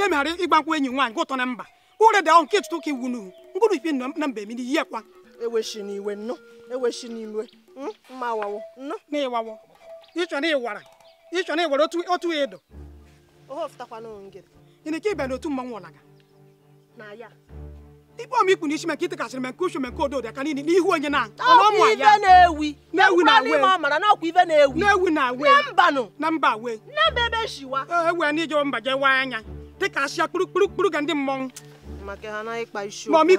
nke meghara ịgbankwụ enyi nwaanyị nke ụtọ na mba ụre da nke tụtụ ka iwu n'uhu mkpụrụ ifi na mba mmiri ihe kwa eweshi n'iwe nnọ eweshi n'iwe mma na ịwawo ịchọ na ịwara ịchọ na ịwara otu otu ịdọ ịnị ka ịbịa n'otu mmanwụ ọlaga ikpe ikpu n'isi maka itekasịrị nke aka n'ihu onye na na mba we na mba na mba e, e, jewa anya dịka ka kpurukpurukpuru ga ndị mmọnwụ mọmị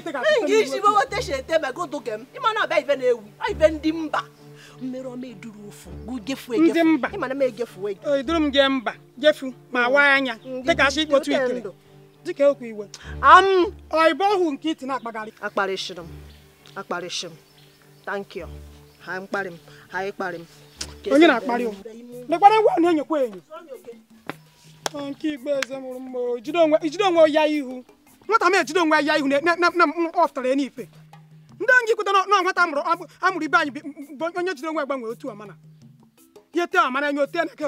kpuru isi wetechete megodoge m ịmana ọbịa ibe na-ewu ibe ndị mba mmerụ na eduru ofu gefu ndị mba eduru eh, m gee mba gefu ma mm. waa anya dịka m akparịsị m tankị ha mkparị m ha ịkparị m onye na-akparị m ngwa na enyekwa enyo nke igbe eze mụrụ mma ijide onwe ya ihu nwata m ejide onwe ya ihu na m ọtara ya n'ife ndị ngị kwụta na nwata amụrụ ibe anyị bụ onye jide onwe gbanwe otu ote na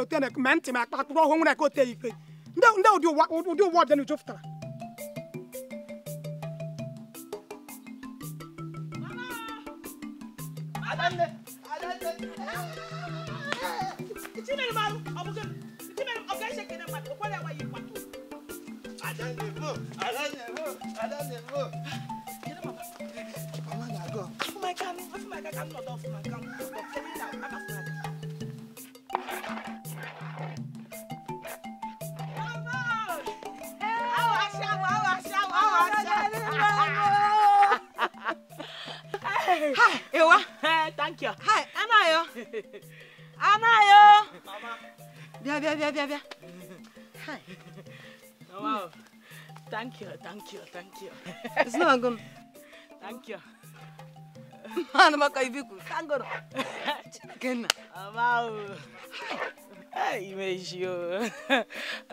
ote na ma ntị ma akpa akpụrụ ọhụụ nwere ote ife ndị ụdị ụwa ọdịnala Adamle. Adamle. İçi benim ağrım. Abukun. İçi benim abgay şekerim var. O kadar var yıkmak. Adamle bu. Adamle bu. Adamle bu. Gelin baba. Mama na go. Afumay kamin. Afumay kamin. Afumay kamin. Afumay kamin. Afumay kamin. Afumay kamin. eu a Thank you. Hi, Anayo. Anayo. Mama. Bia, bia, bia, bia, bia. Hi. Oh, wow. Thank you, thank you, thank you. It's not good. Thank you. Mana maka ibiku. Kangoro. Kenna. Wow. Hi. Ime ishi o.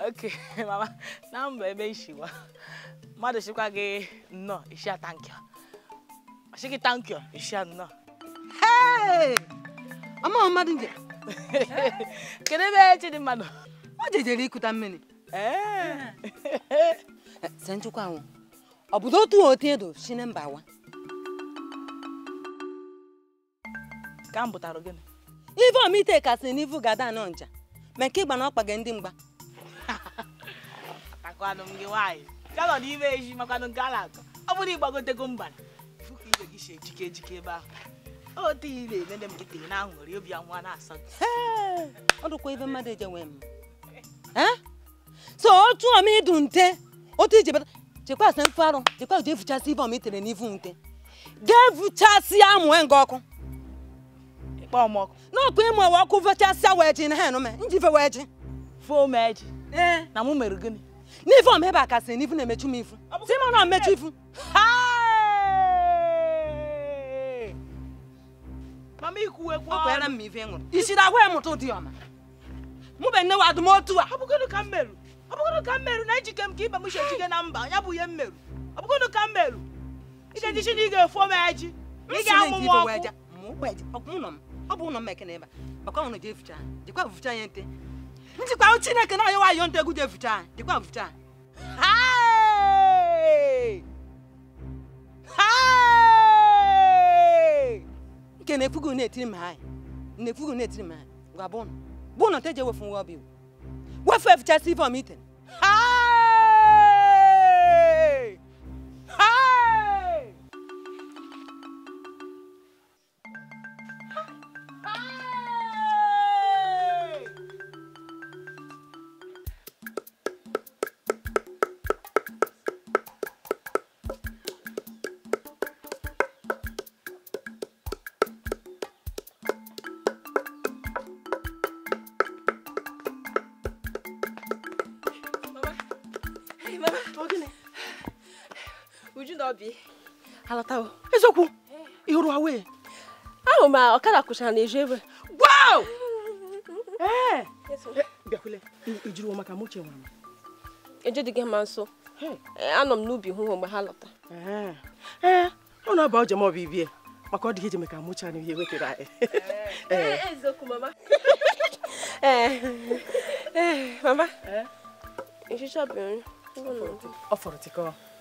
Okay, mama. Na mba ebe ishi wa. Mmadụ shikwa gị no. ishi a thank you. Ọ sị thank you, ishi a no. Ama mmadụ nje. Kedu ebe dị e mmadụ, O jejere ikuta mmiri. Se nchukwu anwụ. Ọ bụ otu otu edo si na mba wa. Ka omite kasị n'ivu gada anọ nja. Ma nke ịgba na ọkpa gị ndị mgba. Ha ha Ọ bụrụ ịgbagotego mbara. ebe ahụ. na ire nene m gị na aṅụrị obi anwa na-asa ọ dụkwa ibe mmadụ eje nwee m so otu ọm ịdụ nte otu ije bata chekwa asa mfe arụ chekwa jee fuchasị ibe ọm itere n'ivu nte jee fuchasịa amụ e nga ọkụ n'ọkụ ịmụ ewe ọkụ vechasịa wee ji na ha enụ me njive wee ji fomeji na mụ mere gịnị n'ivu ọm ebe a kasị n'ivu na-emechu m ifu si mụ na mechu ifu ha Mama ikwuwekwa ọrụ. Ọkwere m ife ṅụrụ. Isiri agwa ịmụtụ dị ọma. Mụ bụ nne wa adụm a. Ọ bụgodụ ka m merụ. Ọ bụgodụ ka m na ejike m ka ibe m shi ejike na mba. Ya bụ ihe m merụ. Ọ bụgodụ ka m merụ. Ị ga-ejichi na ị ga-efu m eji. Ị ga-amụ m ọkụ. Ọ bụ ụlọ m ekene ebe a. je ụnụ jefucha. Jikwa vucha ya nte. Njikwa Chineke na ayọwa ayọ nte egwu jefucha. Jikwa vucha. Hey! Hey! ke na ekwughị na etiri m na ekwughị na etiri m anyị gwa bụ ụnụ bụ ụnụ te je wefu nwa ọbịa wefu efichasị ife ọmiten aa ndị alọtawo eziokwu ị hụrụ ahụ ma ọkada kụchara na eju ebe gwao uche nwere dị gị nso anọ m n'ubi hụ mgbe ha lọta ọ na-aba ma ọ bụ ibie maka ọ dịghị ijeme ka m ihe e wetara anyị mama nri ọ fọrọ tikọọ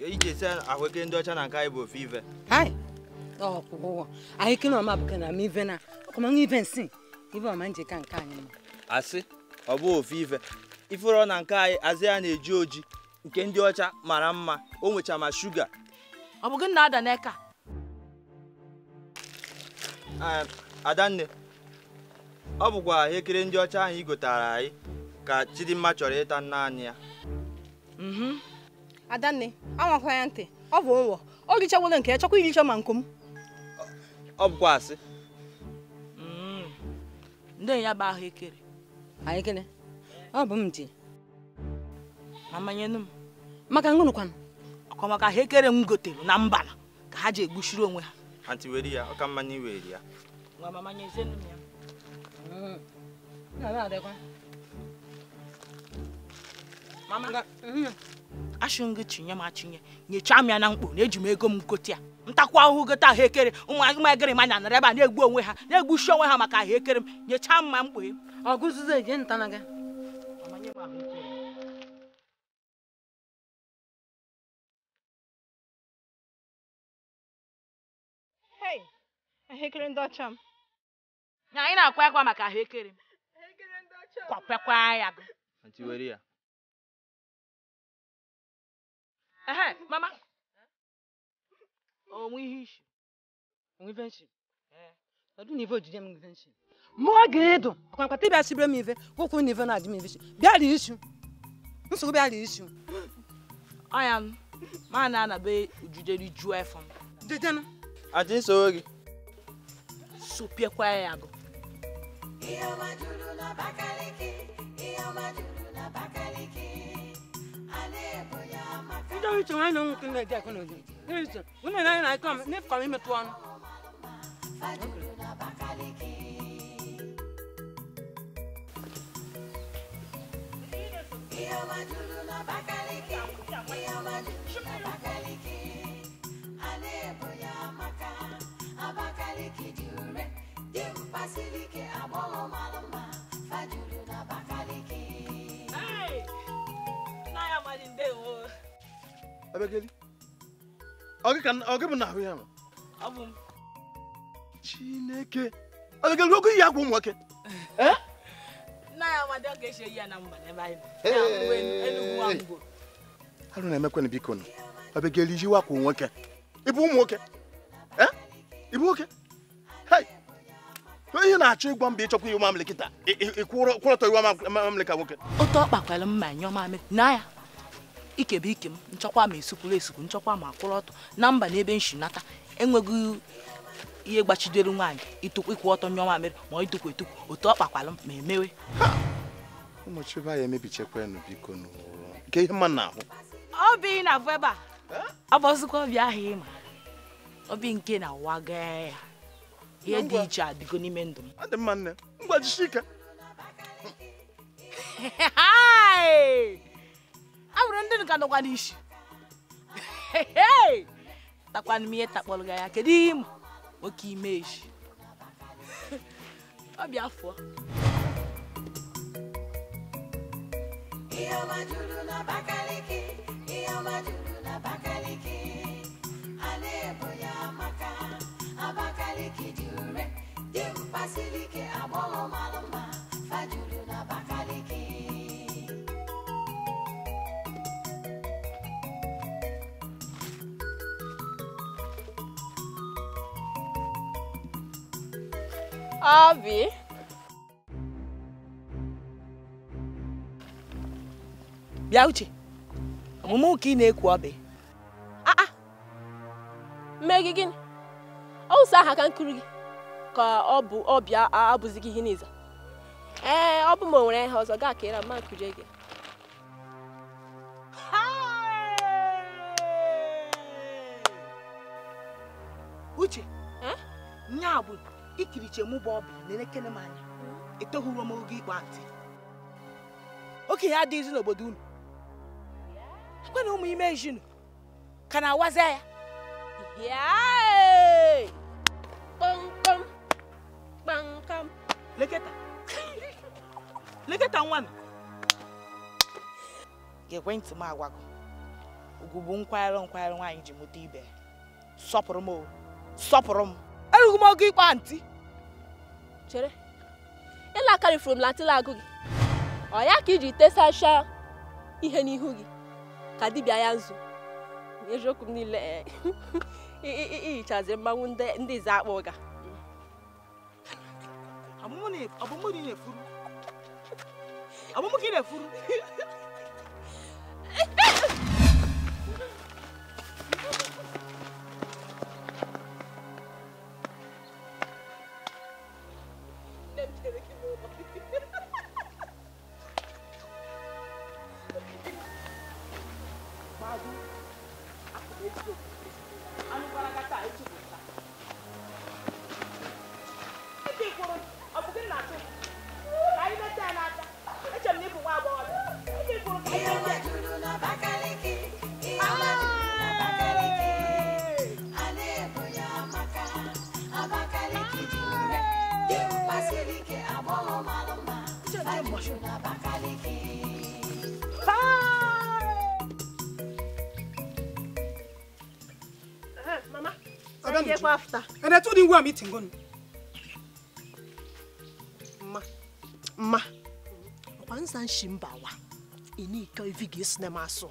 ka eji esi ahụekere ndị ọcha na nke anyị bụ ofe ive ahụekere na nke anyị mma asị ọ bụ ofe ive ifụrọ na nke anyị azị ya na-eji oji nke ndị ọcha mara mma o nwecha ma shuga adanne ọ bụkwa ahụekere ndị ọcha ahụ i gotara anyị ka chidimma chọrọ ịta nna anyị ya mhm. adanne anwakwa ya ntị ọ bụ ụwọ ọ richawole nke ya chọkwa iricha ma nkụ m ọ bụkwa asị mm. ndị ya bụ ahụekere ahụekere ọ bụ m ji amanyenu m maka ngụnụkwanụ ọkọ maka ahụekere m gotere na mbala ka ha ji egbuchiri onwe ha ha tiweri ya ọ ka mmanya iweri ya nwa mm. mama ya achụngo chinye m achịnye nyechaa m ya na mkpo na eji m ego m gote ya ntakwa ahụhụ gote ahụ ekere ụmụ agịrị ma na nara ebe a na-egbu onwe ha na-egbuchi onwe ha maka ahụ ekere m nyechaa m ma mkpo ya ahụekere ndị ọcha m anyị na-akwa akwa maka ahụekere m kwapekwa ya Ehe, mama. Onwe ihe ishi. Onwe Eh. Odu nivo ojije m invention. Mo gedo. Kwa kwa tibia sibre mi ve. nivo na Bia ri Nso bia I am na be ri ju Jeje Ajin so kwa ya juru na Bakaliki. juru na Bakaliki. Então isso aí não tem nada com nós. Isso. Não é nada com nem com mim tu ano. Abakaliki jure, dimpasilike abolo malama, fajuru na bakaliki. Hey! Naya chineke abịageli oge iyi agwa ụmụnwoke arụ na-emekwana biko nụ abịageli iji wakwa nwoke eh? ịbụ ịbụ nwoke ihe na-achọ ịgwa mba ịchọkwa iwe mamịlị kịta ịkwụrọtọ iwe mamịlị ka nwoke otu ọ mma ikebe ike m nchọkwa ma esukwuru esukwu nchọkwa ma akwụrụ ọtọ na mba na ebe nshinata enweghị ihe gbachidere nwaanyị ịtụkwa ịkwụ ọtọ nyọọ mere ma ọ ịtụkwa etukwu otu ọ kpakwalụ m ma emewe ụmụchibe anyị emebichakwanụ biko nke ihe mma na-ahụ obi na-abụ ebe a agbazikwa obi ahụ ịma obi nke na-awa gaa ya ihe dị iche adịgo n'ime ndụ m mma nne mgbajisi ike e nwere ndị nka nọkwa n'isi takwana he ihe takpọrọ ya kedu ihe ịma oke ime eji ọ bịa fụọ ihe ọma juru n'Abakaliki ihe ọma juru n'Abakaliki a na-ebo ya maka Abakaliki dị ure dị mkpasili mkpasilike agbọghọ mara mma fajuru n'Abakaliki Abi. Bịa uche. Omume ụka ị na-ekwu ọbị. E? Ah, ah! Mee gị gịnị? Ọwụsa aha ka nkiri gị ka ọ bụ ọbịa abụzighị ihe n'iza. Ee, ọ bụ m onwere ihe ọzọ gaa kere ma nkurie gị. Uche. Eh? Nya bụ ikiriche mụ bụ ọbịa na-elekere m anya hmm? etoghuru m oge ịkpa ntị okenye adịghịzi n'obodo unu ekwe na ụmụ ime ejinu ka na-awaza ya kpamkpam kpamkpam leketa leketa nwa m ekwentị m agwago ugwu bụ nkwarụ nkwarụ nwaanyị ji mụta ibe sọpụrụ m sọpụrụ m erughị m oge ịkpa ntị chere ịla aka m agụ gị ọ ya ka iji tesacha ihe n'ihu gị ka dibịa ya nzu eziokwu m niile ihichazi eh, mmanwụ ndị ize akpa ụga ka ị na-efuru go after. And I told him where I'm eating. Gone. Ma. Ma. Once I'm Shimbawa, you need to ga to cinema soon.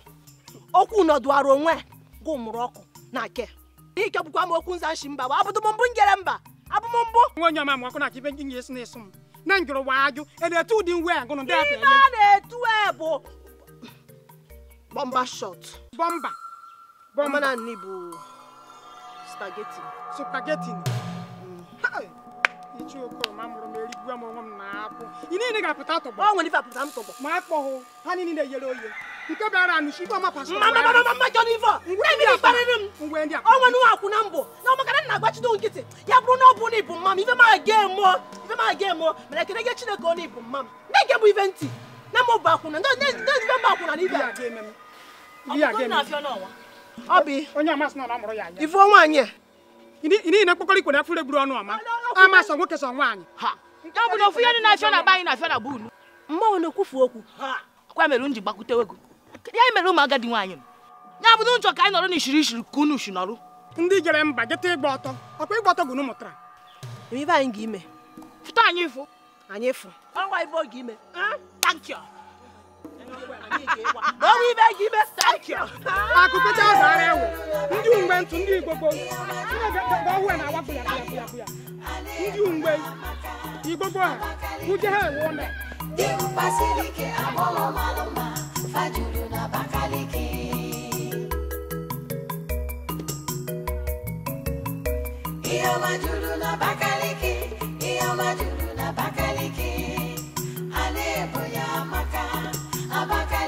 Okwu nọdụ ara onwe gụ mụrụ ọkụ na ke. Ike bụkwa m okwu nza nshi mba wa abụdụ m mbụ njere mba abụ m mbụ. Nwa onye ọma m ọkụ na ka ibe nye esi na-eso Na njụrụ wa ajụ ị na-etu ụdị nwe a gụnụ ndị afọ Ihe na-etu e bụ bọmba shọt. Bọmba. Bọmba na nni supageti. Supageti ni. Ichi oko ma mụrụ m erigbu m onwe m na akwụ. Ị niile ga-apụta tọgbọ. Ọ nwere ife apụta m tọgbọ. Ma akpọ hụ, ha niile yere oye. Nke bịara anụ shi ife ọma pasịrị. Mama mama mama jọ n'ife a. Ngwe ndị akpa. Ngwe ndị akpa. Ọ nwere nwa akwụ na mbọ. Na ọmaka na na-agbachido nkịtị. Ya bụrụ na ọ bụ na ịbụ mma m ife ma ga emụọ. Ife ma ga emụọ. Mere ekele gị Chineke ọ na ịbụ mma m. Na-ege bụ ife Na mụ bụ akwụna. Ndị ife mba akwụna na ife a. Ndị a ga-eme m. Ndị a ga-eme m. ifuo nwaanyị n'ihi na mkpọkọrọ ikwe na afọ egburu ọnụ ọma ama sọ nwoke sọ nwaanyị ọ bụ na ọ na anyị na na na-ekwufu okwu akwa mere m ji gbakwutewe ya mere ụmụ agadi nwaanyị m ya ka anyị nọrọ n'ishiri ishiri ka unu shi nọrọ ndị jere mba jeta ịgba ọtọ ọkwa ịgba ọtọ gụnụ mụtara anyị ga-ime fụta anyị anyị ibe oge ime onwe ibe gị ndị ugbe ndị igbo na awapụ ya ya ya ndị ugbe igbo gboo ha uje ha ewu ụlọ na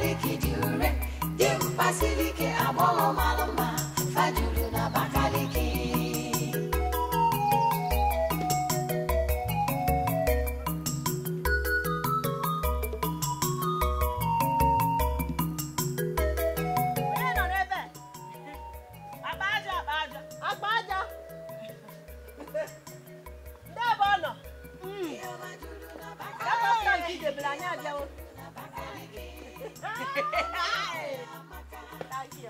siliki dị ure dimkpa siliki agbọghọ mara mma faju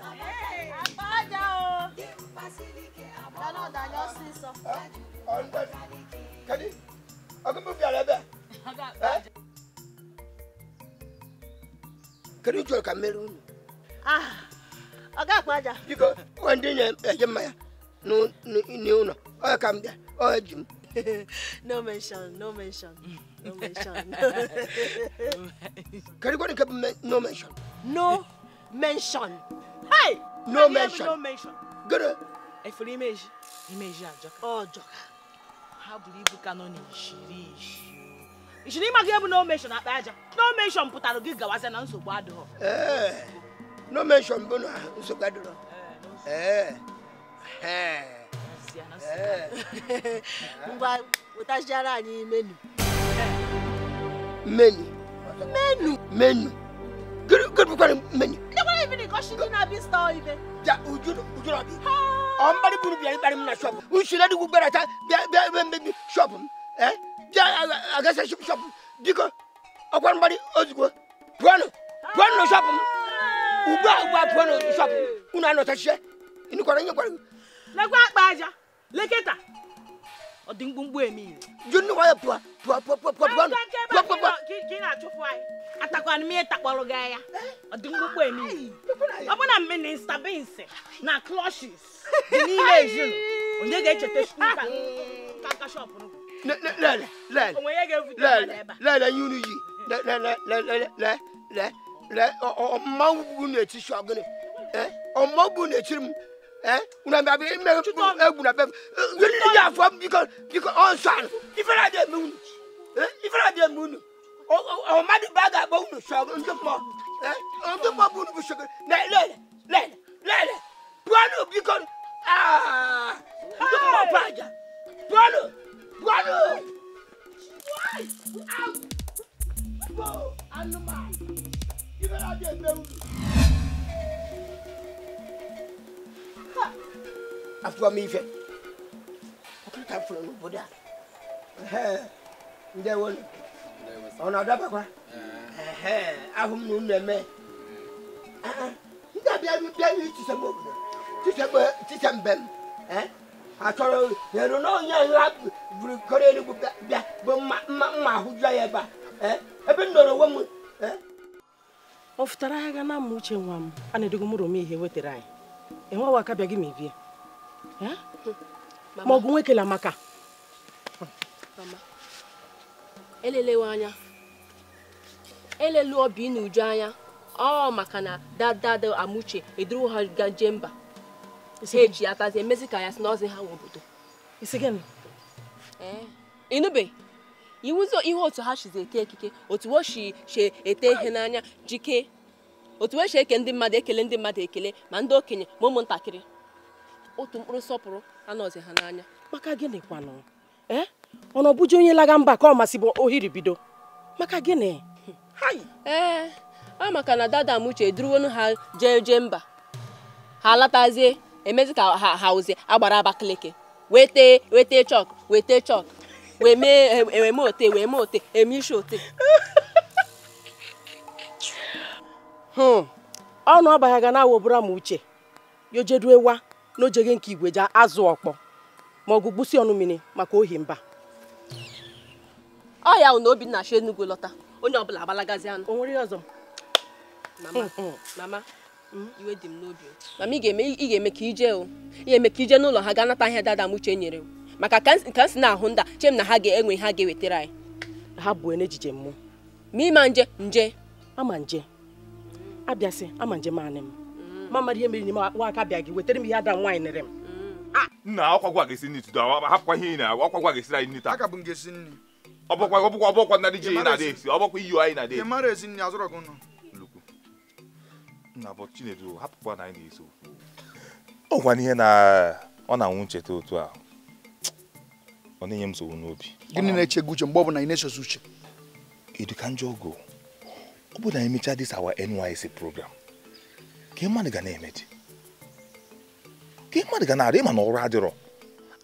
àbájá o lọ́nà ìdájọ́ sí sọ. kẹ́ni ọdún mú fi àrẹ bẹ́ẹ̀. kẹ́ni jọ ka mẹ́rin nù. ọ̀gá àpájà. bíkọ́ wọ́n dín yẹn ẹ̀jẹ̀ maya ní ọ̀nà ọ̀yọ̀ kà ń bẹ̀ ọ̀yọ̀ jù mí. no mention, no mention, no mention. Can you go to no mention? No mention. Hey! No mention. No mention. Good. If you image, image Joka. Oh, Joka. How believe you can only não me ma ga ebu Não mention akpa aja. No mention pụtara gị gawaze na não me Eh. não mention bụ na nsogbu adịghọ. Eh. Eh. eh. Ngwa eh. wetachiara anyị menu. Menu. Menu. Menu. Good, good, good menu. No one even because she didn't have this store even. Yeah, would you, would you not be? I'm very good, very bad in a shop. We should let you go better. Shop him, eh? Yeah, I guess I should shop him. Because I want money, Osgo. Puano, Puano shop him. Uba, Uba, Puano shop him. Una no touch it. In the corner, you're going. Like what, Baja? ọdị mkpụmkpụ emi junu waya pụa pụa pụa pụa pụa pụa pụa pụa pụa ka ị na-achụpụ anyị atakwana m ihe takpọrọ gị anya ọdị mkpụmkpụ emi ọbụna minista binsi na clọshis dị n'ime ezinụ onye ga-echeta skul ka aka shọpụ n'ụkwụ lele lele lele lele yi unu yi lele lele lele lele ọmmanwụ bụ n'etiti ọgụnị ọmmanwụ bụ n'etiti m Eh? una bɛ a bɛ mɛ tutu e gunna bɛɛ wuli ni y'a fɔ bi ka bi ka ɔn sɔn i fana de mun i fana de mun o o ma di ba ka bɔ wuli sɔn n tɛ kuma n tɛ kuma bulu bi sɔgɔ lɛ lɛ lɛ lɛ puwalo bi ka aa n tɛ kuma pa ja puwalo puwalo. Animal, you better get them. afọ m ife ọkụta fụrụ n'obodo a ndewolu ọ na-adabakwa ahụ m na unu eme ndị abịarụ bịarụ itisem obodo tisem be m achọrọ eru na onye nla buru bịa bụ mma ahụ jụọ ya ebe a ebe m nọrọ onwe m ọ fụtara agha na mma uche nwa m a na-edogo mụrụ m ihe wetara anyị enweghị aka bịa gị ma ibie ma ọ bụ nwoke la maka elelewe anya elelu obi n'uju anya ọ maka na dadada amuche eduru ha gaje mba ha eji atazi emezi ka ya si n'ọzi ha nwe obodo eh. inube iwuzo ihe otu ha chizi eke ekike otu o ete ihe n'anya jike otu o shi eke ndị mmadụ ekele ndị mmadụ ekele ma ndị okenye ma ụmụntakịrị otu mkpụrụ nsọpụrụ anọzi ha n'anya maka gịnị kwanụ ee ọ na onye laga mba ka ọ masị bụ ohiri bido maka gịnị ee ọ maka na dada m uche ha jee jee mba ha latazie emezi ka ha hauzie agbara abakaliki wete wete chọk wete chọk wee mee eme e, ote wee mee ote eme ishi ote hmm. ọnụ ọbaghaga na awobụra m uche yojeduewa n'ojege nke igwe jee azụ ọkpọ ma ọ bụ gbusi ọnụ mmiri maka ohi mba ọ ya na Obinna si Enugu lọta onye ọbụla agbalagazi anụ o nwere ọzọ mama mm, mm. Mm. iwe dị m n'obi mama ị ga-eme ka ije ị ga-eme ka ije n'ụlọ ha ga nata ahịa dada m uche nyere maka ka m si na-ahụ nda chem na ha ga-enwe ha ga-ewetara anyị ha bụ n'ejije mmụọ ma ịma nje nje ama nje abịasị ama nje maanị m mama ihe mere n'ime nwaaka bịa gị wetara m ihe ada nwaanyị nere m mm. ah! nna akwagwa ga-esi nri tudo hapụkwa ihe ị na akwagwa ga-esiri anyị nri taa ọbụkwa ọbụkwa ọbụkwa dị ji anyị na adị esi ọbụkwa iyi anyị na-ada esi mara ezi nri azụrọ gị nọ nna bụ chinedu hapụkwa na anyị na-eso ọ gwana ihe na ọ na-anwụ ncheta otu a ọ na-enye m nsogbu n'obi gịnị na eche gị uche mgbe ọ bụla ị na-echezo uche edu ka njọ ogo ọ bụ na emechaa dis our NYSC program ka mmadụ ga na-emechi ka mmadụ ga na-arị ịma na ọrụ adịrọ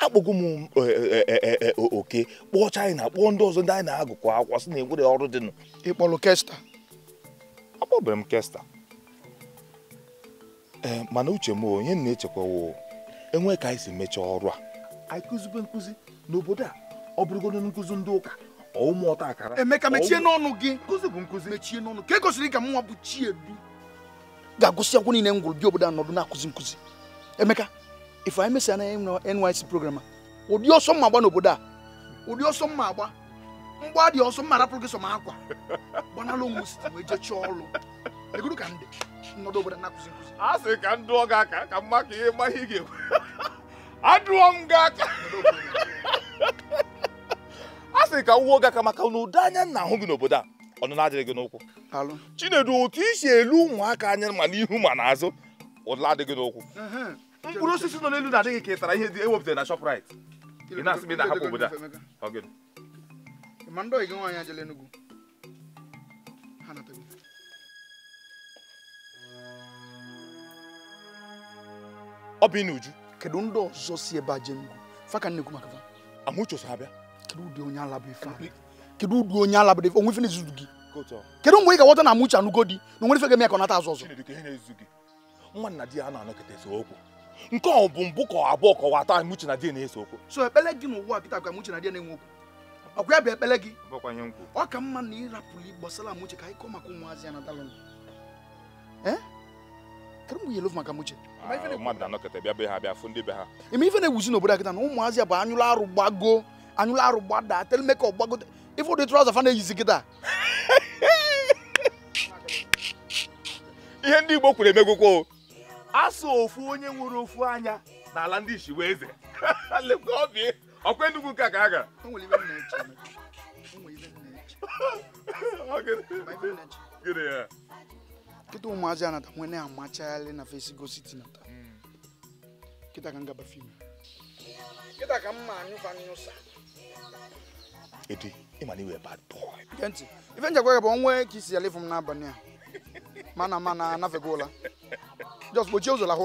akpọgo m e, e, e, oke kpọọ chaịna kpọọ ndị ọzọ ndị anyị na-agụkọ akwụkwọ sị na enwere ọrụ dịnụ ịkpọrọ kesta akpọbere m kesta ee mana uche m onye na-echekwawo enwe ka anyị si mechaa ọrụ a anyị kụzibe nkụzi n'obodo a ọ bụrụgodo nkụzi ndị ụka ụmụ ọta akara emeka mechie n'ọnụ gị nkụzi bụ nkụzi mechie n'ọnụ ka e gosiri ka m bụ chiedu ga-agụsị akwụkwọ niile ngwụrụ gwụrụ bi obodo anọdụ na-akụzi nkụzi emeka ife anyị mesịa na NYC program ụdị ọsọ mma agba n'obodo a ụdị ọsọ mma agba mgba dị ọsọ mma rapụrụ gị sọ ma akwa gbanalụ onwe osisi wee chọọ ọrụ egoro ka ndị nọdụ obodo na-akụzi nkụzi a sị ka ndụ dụọ gị aka ka mma ka ihe mma ihe ga-ekwe adụọ m gị aka a sị ka m wuo gị aka maka na ụdị anya nna ahụ gị n'obodo a ọnụna adịghị gị n'ụkwụ chinedu otu i si elu ụmụaka anya ma n'ihu ma n'azụ ụdịla adịghị n'ụkwụ mkpụrụ osisi nọ n'elu na-adịghị ka tara ihe dị ewepụtara na Shoprite ị na-asị m ị na-ahapụ obodo a ọ bụ n'uju kedu ndị ọzọ si ebe a jee nnukwu fa ka nnekwu maka fa amụchoso ha bịa kedu ụdị onye ala ife kedu udu onye ala bụ onwe ife na-ezuzu gị kedu mgbe ị ga na Amuche anụgo di na onwere fe ga-eme ka ọ nata azụ ọzọ nwa na di ya na-anọkọta ese okwu nke ọ bụ mbụ ka abụọ ka ọwa atọ Amuche na di na-ese okwu so ekpele gị n'ụwa a kịta ka Amuche na di na-enwe okwu ọkwa ya bụ ekpele gị ọ ka mma na ịrapụrụ gbasara Amuche ka anyị kọọ maka ụmụazị ya na dalụ eh? kedu mgbe yelov maka Amuche mmadụ na-anọkọta bịa be ha bịa fụ ndị be ha ime ife na-ewuzi n'obodo akịta na ụmụazị ya bụ anyụla arụ gbago anyụla arụ gbada tele ime ifu ụdị trọza fa na-eyizi kịta ihe ndị Igbo kwuru emegwokwo asụ ofu onye nwere ofu anya n'ala ndị isi wee eze ọkwa Enugu ka ka a gara kịta ụmụazị anata nwee na-amachagharị na fesigo siti nata kịta ka m gaba fim kịta ka m ma anyụfa anyụsa ịmana iwe bad boy gentị ife njekwa gị bụ onwe ka isi ya lefu m n'abalị a mana mana anafego ụla just gbochie ụzọ lahụ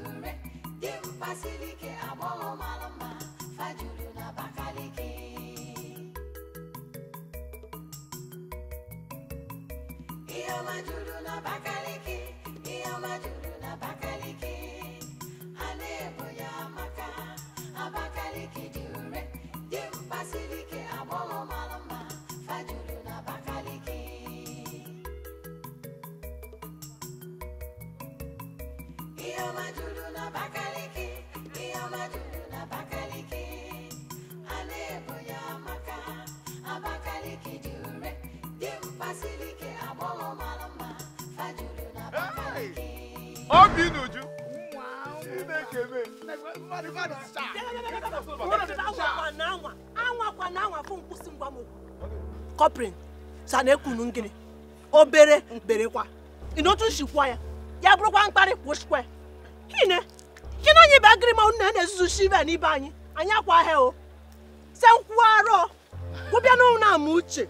asilike agbọghọ mara mma fajuru na Abakaliki ihe ọma na Abakaliki ihe ọma na Abakaliki ha na ya maka Abakaliki dị ure dị mkpa malama, agbọghọ fajuru na Abakaliki ihe ọma na Abakaliki obi bụ kọprin sa na ngịnị obere berekwa ya ya bụrụkwa mkparị gị na anyị bụ agịrịmanwụ na na-ezuzu shiva n'ibe anyị anyị akwa ahịa o se nkwuarọ gwụbịa n'ụlọ na-ama uche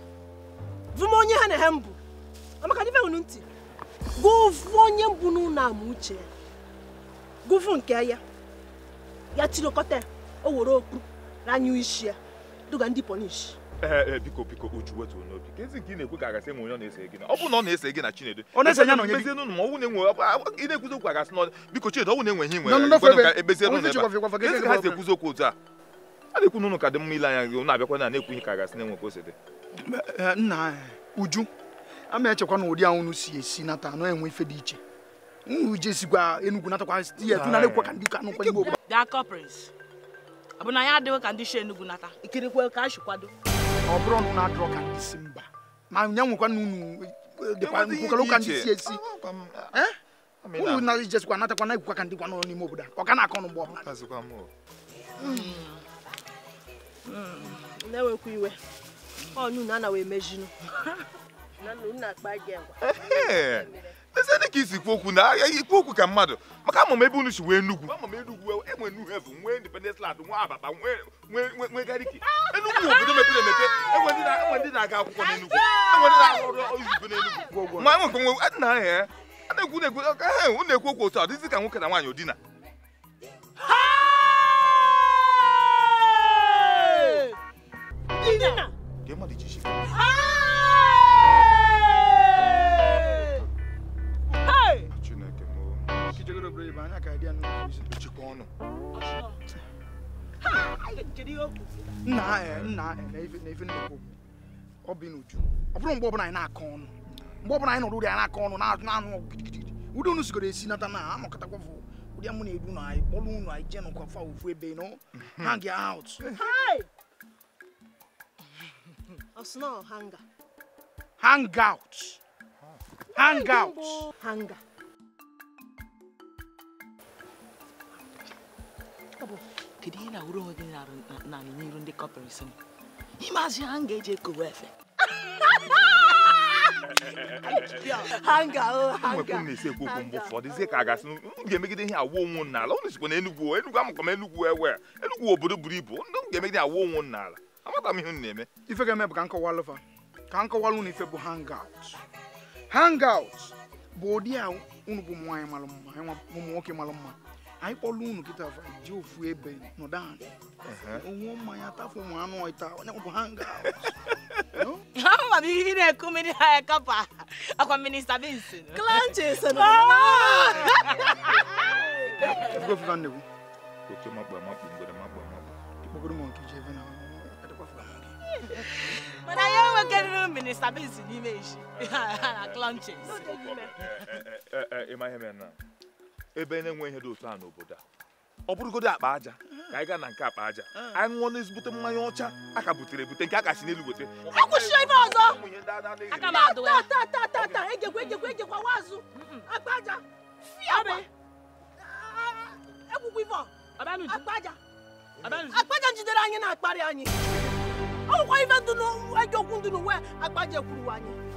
vụm onye ha na ha mbụ amaka dịbe unu ntị gụvụ onye mbụ n'ụlọ na-ama uche ya gụvụ nke ya ya tirikọta o were okpu ranyụ isi ya duga ndị pọnishi ee eh, eh, biko biko uju wetuo n'obi ka ezi nke ị na-ekwu ka agasị enwe onye ọ na-ese gị na ọ na ọ na-ese gị na chinedu ebezie n'ụlọ ma ọnwụ na-enwe ị na-ekwuzi okwu agasị n'ọdị biko chinedu na-enwe ihe nwere ebezie ha si ekwuzi okwu otu a a na-ekwu n'ụlọ ka dị mma ile anya gị abịakwa na na-ekwu ihe ka agasị na-enwe ka o si dị eh, nna uju a echekwa na ụdị ahụ si esi nata anụ enwe ife dị iche uju esikwa enugwu natakwa ya ekwe ka ndị ka anụkwa igbo ya adịghị ka ndị shi enugwu ọ bụrụ na ụnụ adọrọ ka ndị si mba ma nya nwekwa na unu eh, dịkwa nkwukọrọ ụka ndị si esi unu eh? na ijesikwa natakwa na ikwukwa ka ndị gwa n'ime obodo ọ ga na-akọ ọnụ mgbe ọbụla hmm. hmm. na-enwekwa iwe ọnụ na anaghị emejinu na akpa gị agwa eze dị ka isi kwu okwu na agha eh, ikwu okwu ka mmadụ maka ama ebe unu si wee Enugwu ama m eh, Enugwu enwe Nnewi nwee nwee nwee obodo ndị na-aga akwụkwọ enwe ndị ọrụ ma ahịa a ekwu na eh, okwu otu a dịzi ka nwoke na nwaanyị Dina! nna e, nna e, na-efe ọ bụ n'uju ọ anyị na-akọ ọnụ mgbe ọbụla anyị nọrọ uri anyị na-akọ ọnụ na-anụ ọgụ ụdị unu sigoro esi nata na anọkọtakwa fụ ụdị amụ na-edu na anyị kpọrọ unu anyị jee nọkwa fa ofu ebe mhm. hang out hang out kedu ihe na uru dị n'ala n'iru ndị kọpịrịsị m azụ ha ga-eji efe ha mgbe ha ka a gasị m ga-emegide ihe awụ onwu n'ala ụnụ sikwa na enugwu oh, enugwu amụkọ enugwu ewe eh, enugwu obodo buru ibu ụnụ ga-emegide awụ n'ala amata m ihe na-eme ife ga-eme bụ ka nkọwalụ fa ka nkọwalụ ụnụ ife bụ hangout hangout bụ ụdị a ụnụ bụ nwaanyị malụ mma ụmụ nwoke malụ mma anyị kpọlụ unu kịta fa ji ofu ebe nọdụ anyị onwe mmanya tafụ ụmụ anụ ọta onye bụ ha nga ama m ihe na-eku mmiri ha ekapa akwa minista bins klanches efugofuga nnegwu oke makpa makpa mgbere makpa makpa ịkpọgoro m nke ji ebe na mana ya enwekarịrị minista bins n'ime isi na klanches ịma ihe mere na ebe na-enwe ihe dị otu a n'obodo a ọ bụrụgodo akpa aja ka anyị gaa na nke akpa aja ah. anyị ṅụọ na n'ezigbote mmanya ọcha a ka butere ebute nke a ka si n'elu gote akwụsịọ ibe ọzọ tata egekwa egekwa egekwa wazụ akpa aja ah, egwukwa ife akpa aja akpa jidere anyị na akparị anyị ọ nwekwa ife dị n'egokwu ndị n'uwe akpa aja anyị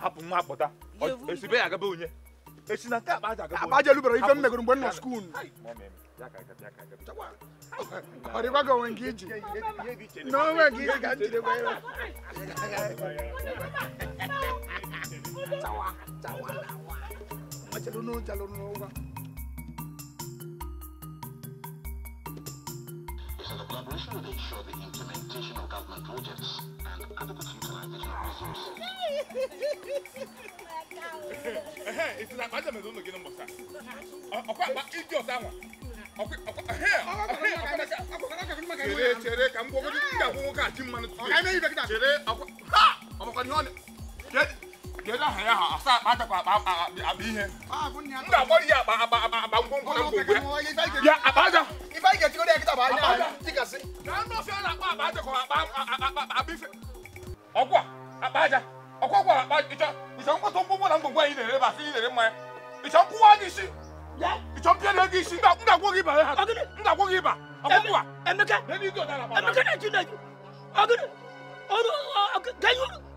hapụ nwa akpọta esi be ya agaba onye esi na nke akpa aja agaba aja lubara ife m megoro mgbe m nọ skuul ọ dịkwago onwe nke iji na onwe nke iji ka m gwa ya Chawa, chawa, chawa. Machalunu, chalunu, uga. So the collaboration will ensure the implementation of government projects and adequate utilization of resources. Hey, Ehe, ìtura àgbàjọ mẹ́rin ló gé ní mbọ̀sá. Ọkọ àgbà Okay, okay. wọn. Ọkọ ọkọ ẹhẹ ọkọ ọkọ chere chere ka m gbọgọdọ ndị akwụkwọ ka ji mmanụ tupu. Chere ọkọ ha ọmọkọ ni ọ na kedu aha ya ha asa akpa atakwa akpa akpa ihe m ga-agbọrọ ya akpa akpa akpa akpa ngwongwo na ngwongwo ya akpa aja ife anyị ga-etikọrọ ya kịta bụ anya aja tikasị na anụ ofe ọ na-akpa akpa aja kọrọ akpa akpa akpa ife ọkwa akpa aja ọkwa ọkwa akpa ịchọ ịchọ nkwata ngwongwo na ngwongwo anyị na-ere basị ị na-ere mmanya ịchọ nkwụwa gị isi ịchọ mpịa gị isi m ga-agwọ gị ịba ha m ga-agwọ gị ịba ọkwa emeka emeka na-eju na-eju ọgịnị ọrụ ọgịnị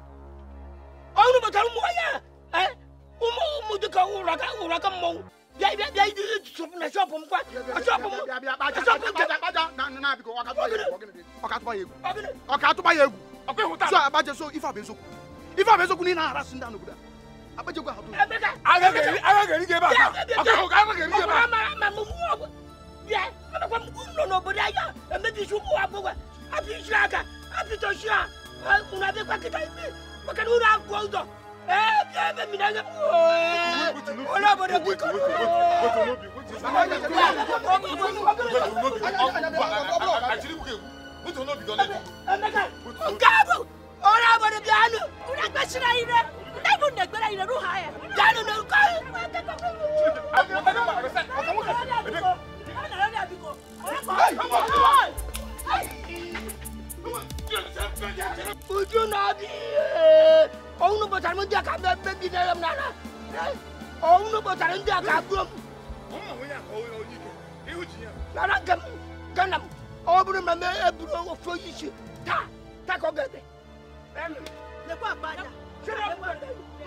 ɔnu bɛtɔn mu ɔyɛ ɛ umu umu de ka wura ka wura ka mɔw bia bia bia yi yi sɔpu na sɔpu mu kɔ sɔpu mu sɔpu mu kɛ. na na bi ko ɔkatuma yegu ɔkatuma yegu ɔkatuma yegu so abajɛ so ifa bɛ soku ifa bɛ soku ni na ara sunjata nugu la abajɛ ko a to. ala kɛli ala kɛli kɛ b'a kan ɔkɔ ala kɛli kɛ b'a kan. ɔkɔ ama ama mu mu ɔkɔ bia mɛ ko mu nɔnɔ bɔ de ayi a mɛ bi su mu wa bɔ wa a bi su a kan a bi tɔ su a kunna a bɛ kɔ kita yi bi maka nuru abu ụzọ ee bịa ebe mmiri anya onye obodo biko nke bụ onye obodo bịanụ unu akpachiri anyị re ndị bụ nna egbere anyị ruha ya bịanụ na nke ọrụ Hey! Bucu nabi, kau nu pacar mesti akan bebek di dalam nana. Kau nu pacar mesti akan belum. Nana gam, ganam. Kau belum nama belum fokus. Ta, ta kau gede. Em, Lepas apa aja?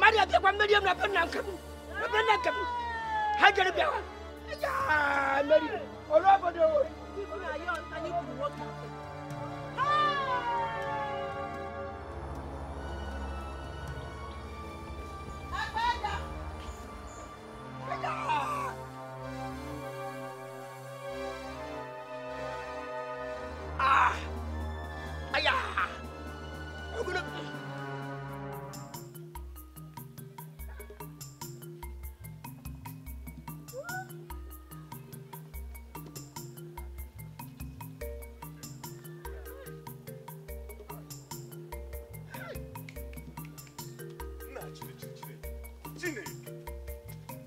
Mari kita kau medium lepas nangkep, lepas nangkep. Hajar biawak. Ya, mari. Kalau apa dia? Ibu ayah, tanya ibu 哎呀！哎呀！啊！哎呀！我不能。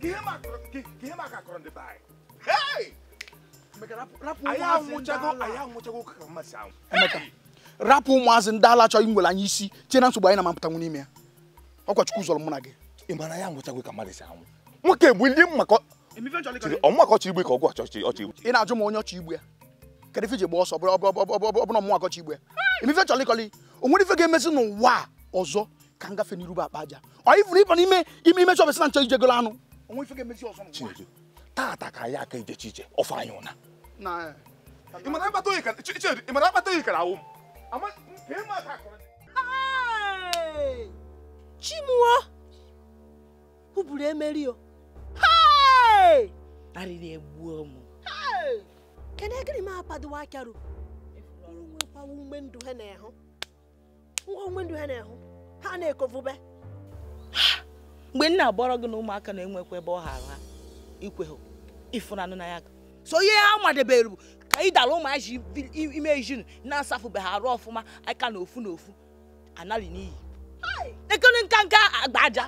ihe maka akọrọ ndị be anyị rapụ ụmụazị ndị ala chọghị nwere anya isi tie na nsogbu anyị na-amapụtanwu n'ime ya ọkwachukwu zọrọ mụ na gị ị ya nwụchagwe ka mmadụ si anwụ nwoke bụ ndị ọchị igbe ka ọgwụ ọchị ị na-ajụ m onye ọchị igbe ya kedụ ije gba ọsọ ọbụna ọmụma akọchị igbe ya emife chọlịkọlị o nwere ife ga n'ụwa ọzọ ka n'iru bụ aja ọ ifuru ịba n'ime ime na nchọ ijegolo anụ onwe ife ga-emezi ọzọ Chineke taata ka anyị aka ejechi ije ọfọ anyị ụna e. ị mara akpata oyi kara awụ m Chimuo kwuburu emeri o arịrị egbuo m kedu gịnị m akpadowa akaru nwekwawa ume ndụ ha na-ehụ nwa ume ndụ ha na-ehụ ha na-ekovube mgbe nna abọrọ gị na ụmụaka na-enwekwa ebe ọ ha ha ikweghụ ịfụnanụ na ya so ihe ha madebere bụ ka ị dara ụmụaji ime ejin na ha arụ ọfụma aka na ofu na ofu anarị n'iyi nekere nkanka nka akpa aja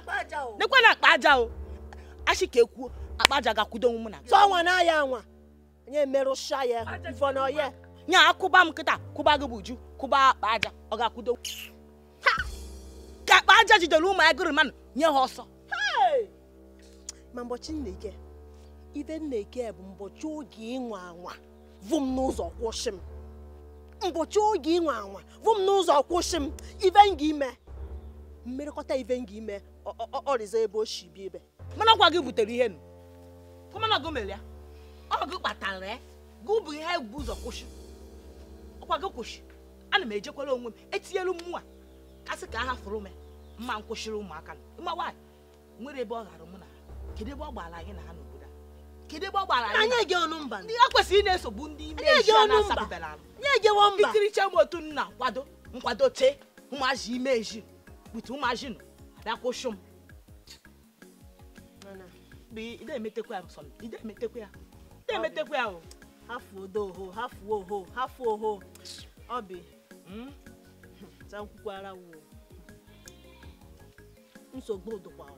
nekwe na akpa aja o achị ka ekwuo akpa aja e ga-akwudo onwe m na tọnwa na ya anwa nye merụcha ya vọnọye nya akụba m kịta kụba gị bụ uju kụba akpa aja ọ ga-akwudo ka akpa aja jidere ụmụ agụrụ mmanụ nye ha ọsọ ma mbọchị nneke ibe nneke bụ mbọchị oge ịnwa anwa vụ m n'ụzọ kwụsị m mbọchị oge ịnwa anwa vụ m n'ụzọ kwụsị m ibe m ime mmerịkọta ibe m ga-ime ọrịza ebe o si bi ebe mana ọkwa gị butere ihe nụ kọmana ọgụ mere ya ọgụ kpatara e, gị bụ ihe bụ ụzọ kwụsị ọkwa gị kwụsị ana m ejekwara onwe m etinyelu m nwa kasị ka a hafụrụ m e, mma nkwụsịrị ụmụaka nụ nwa nwaanyị nwere ebe ọ ghara mụ na kedu ebe ọ gbara na ha n'obodo a kedu ebe ọ gbara anyị ege ọnụ mba ndị a kwesịrị ị na-esogbu ndị ime isi a na-asabebela anụ itiriche m otu nna kwado nkwado tee ụmụazị ime eji kputu ụmụazị nọ dakwụsụ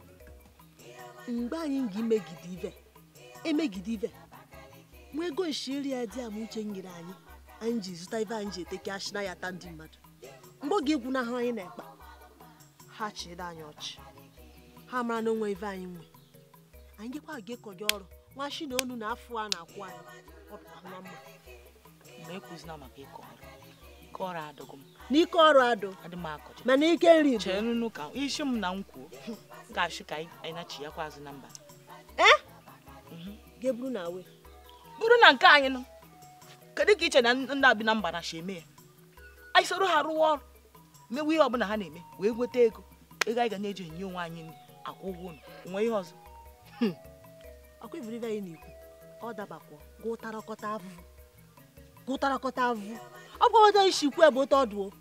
m mgbe anyị ga-emegide ive emegide ibe nwa ego nshiri ya di ama uche nyere anyị anyị ji zụta ive anyị ji eteke ashina ya ata ndị mmadụ mgbe oge egwu na ha anyị na-ekpa ha chịrị anyị ọchị ha mara na onwe ive anyị nwe anyị gekwa ga-ekọ gị ọrụ nwa shi na onu na afọ a na-akwụ anyị ọ pụtara mma mgbe ekwuzina maka ịkọ ọrụ ịkọ ọrụ adọgọ m na ike ọrụ adụ mana ike nri isi m na ka anyị na-achị yakwa azụ na mba e? mhm. ga-eburu bụrụ na nke anyị nọ kedu ka iche na ndị abi na mba na shi eme ya anyị soro ha rụwa ọrụ mewe ihe ọbụla ha na-eme wee nweta ego ego anyị ga na-eji enye onwe anyị hmm. ọ avụ avụ ọ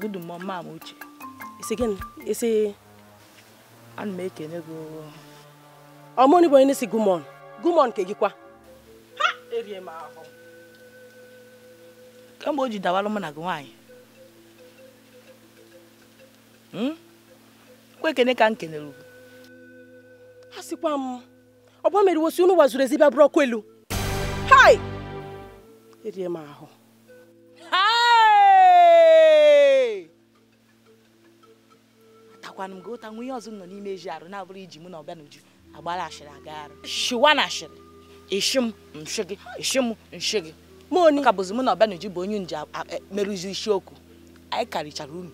Good mom, mama uche. Isi gịnị? Isi ana m ekene gị ọmụnị bụ onye na-esi gumon gumon nke gị kwa ha erie m ahụ kemgbe o ji dawalụ mụ na gị nwaanyị hmm? kwa ekene ka m kenere ugwu m ọgba mere wosi unu wazuru ezibịa bụrụ ọkụ elu hai erie m ahụ akwana m gị ụta nwa ihe ọzọ nọ n'ime eji arụ na-abụrụ iji mụ na ọbịa n'uju agbara ashịrị aga arụ shiwa na ashịrị ishi m nshi gị ishi m nshi gị m onye ka bụzi mụ na ọbịa n'uju bụ onye nje merụzi isiokwu anyị karịchara unu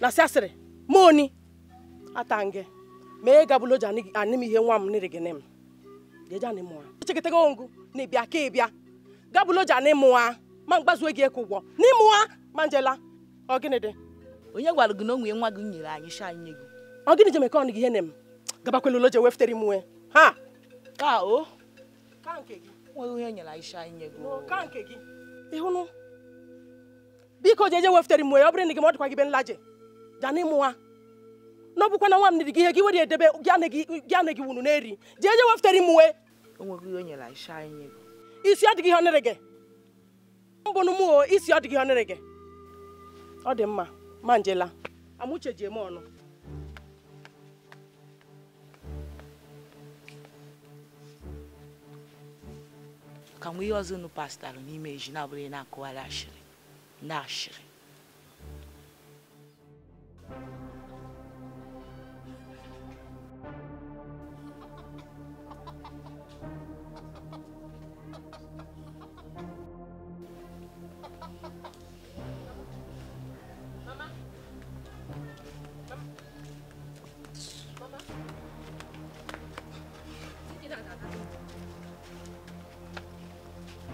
na sị asịrị m onye atan gị ma ị gabụla oji anị m ihe nwa m nịrị gị nị m jeje anị mụa chekịta gị ongụ na ịbịa ka ịbịa gabụla oji anị mụa ma mgbazuo gị ekwu ụgwọ n'ịmụa ma njela ọ gịnị dị onye gwara gị na onwe nwa gị nyere anyị sha anyị nye gị ọ gịnị je ọ gị ihe na m gabakwela ụlọ je weftere m nwe ha ka o ka gị nweghị onye nyere anyị sha anyị nye gị ịhụnụ biko je je weftere m nwe ọ bụrụ na gị ma ọ dịkwa gị be nlaje gaa ịmụwa nwa na ọ bụkwa nwa m niri gị ihe gị were edebe gị ana gị wunu na-eri jee je weftere m nwe onweghị ihe o anyị sha isi adịghị ihe ọ nere gị mbụ n'ụmụ isi ọ dịghị ihe ọ nere gị ọ dị mma manjela amuche ji eme ọnụ ka nwe ihe ọzọ unu pastalụ n'ime eji na-abụghị na-akụgharị ashịrị na ashịrị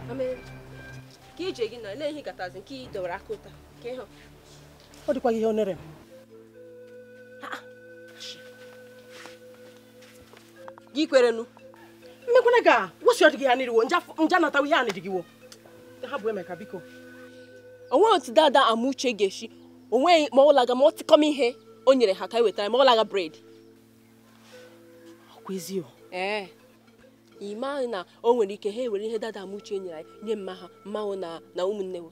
ka ije gị nọ na-ehi gatazi nke ị dọwara aka ụta ka ịhụ ọ dịkwa ihe onere m gị kwerenu mmekwana ga wosi ọdịgị ya n'iriwo nja natawa ihe a n'irigiwo ha bụ emeka biko onweghị otu dada ama uche ga-esi onweghị ma ọ laga ma ọ tịkọm ihe o nyere ha ka e wetara ma ọ laga bred ọ kwa ezio ee ịma na o nwere ike ha ewere ihe dada muche nyere anyị nye mma ha mmanwụ na na ụmụnne we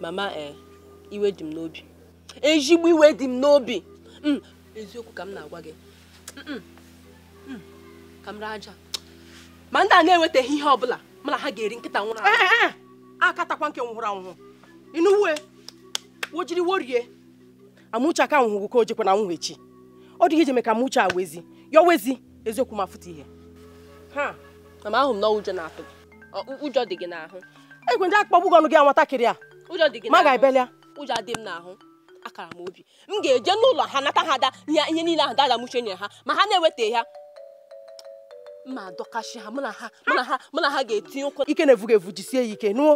mama ee eh, iwe dị m n'obi ezigbo iwe dị m n'obi mm, eziokwu ka m na-agwa gị mm, mm, ka m raa aja ma ndị a na-enwetaghị ihe ọbụla mana ha ga-eri nkịta nwụrụ anwụ eh, eh, akatakwa nke nwụrụ anwụ inuwe wojiri worie amụcha ka nwụghụ ka o jekwa na nwụghụ echi ọ dịghị ije ka m uche awezi ya wezi eziokwu ma fụta ihe ha na ama ahụ m na ụjọ na-atụ ụjọ dị gị n'ahụ egwe ndị akpọgbu gị ọnụ gị nwatakịrị a ụjọ dị gị ma ga-ebelia ụjọ adị m n'ahụ akara m obi m ga-eje n'ụlọ ha nata ha ada ihe niile ahụ dada m uche nyere ha ma ha na-eweta ya ma dọkasị ha mụ na ha mụ na ha ga-etinye ụkwụ ike na-evu ga-evu jisie ya ike nụọ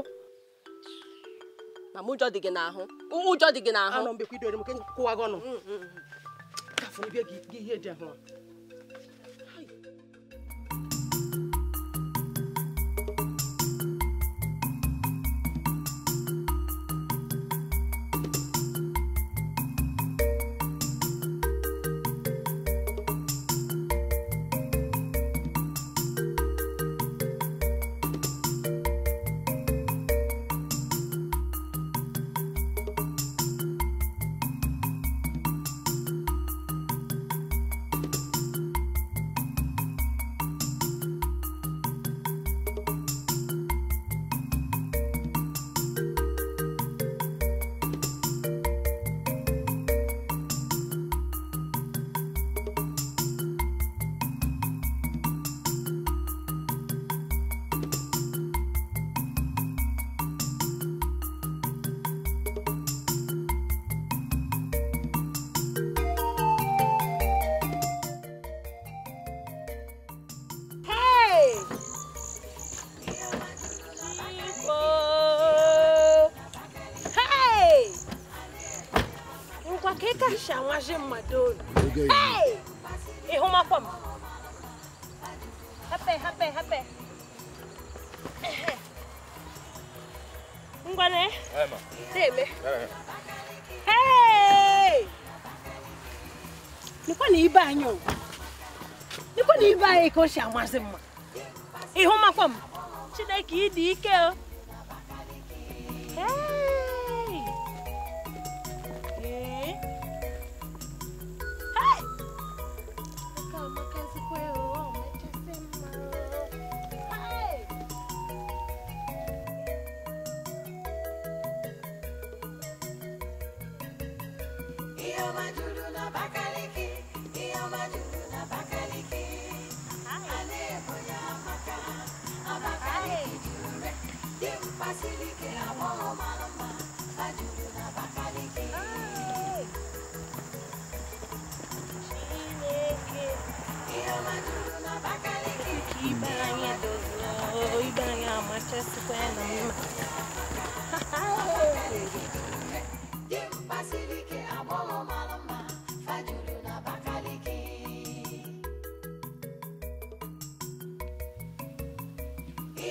ma m ụjọ dị gị n'ahụ ụjọ dị gị n'ahụ 你别给，你也点好。ka o si amasị mma ịhụ makwa m chineke ịdị ike o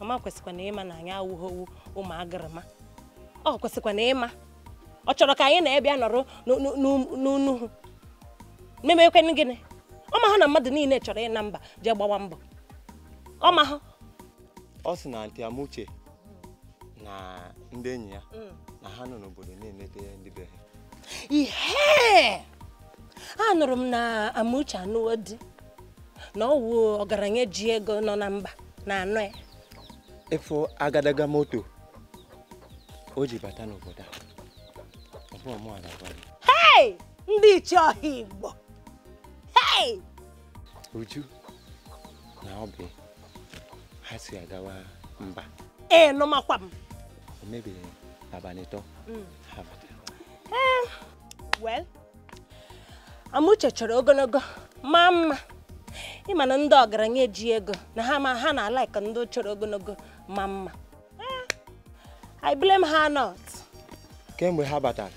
mama kwesịkwa na ịma na anyị awụghọwu ụmụ agịrịma ọ kwesịkwa na ịma ọ chọrọ ka anyị na-ebịa nọrọ n'unuhu memekwenụ gịnị ọmahụ na mmadụ niile chọrọ ịna mba jee gbawa mbọ ọmahụ ọ sị na ntị amuche na ndị enyi ya mm. na ha nọ n'obodo na-emete ndị be ha ihe a nụrụ m na amuche anụwo di na ọ wụ ọgaranya ji ego nọ na mba na anọ ya ịfụ agadaga moto o ji bata n'obodo a ndị ichie ọha Igbo Uju na Obi ha si agawa mba ee makwa m o mebiri abalị atọ mm. ha batara eh, Amuche chọrọ ogologo maa mma ịma na ndị ọgaranya eji ego na ha ma ha na-alaịka ndị chọrọ ogologo ma I blame her not. kemgbe ha batara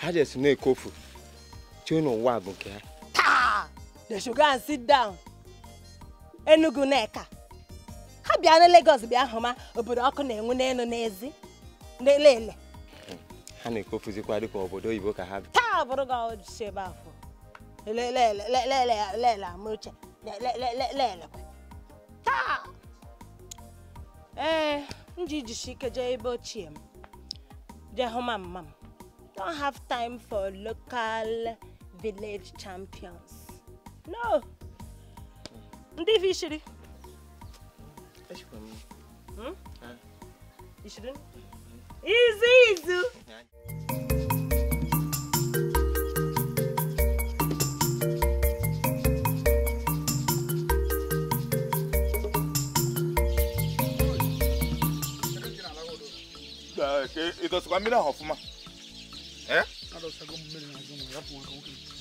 ha jesi na-ekofu chee n'ụwa bụ nke ha taa they should and sit down Enugu Nneka ha bịa na Lagos bịa hụ ma obodo ọkụ na-enwu n'elu n'ezi n'elele ha na-ekofuzikwa dịka obodo oyibo ka ha taa bụrụ gị ọjị ebe afọ lele amụche lele taa ee m ji jishi ike jee ebe ochie m jee hụ ma mma m don't have time for local village champions no ndị vishiri hmm? ishiri izu izu ịdọsịkwa mmiri ahụ ọfụma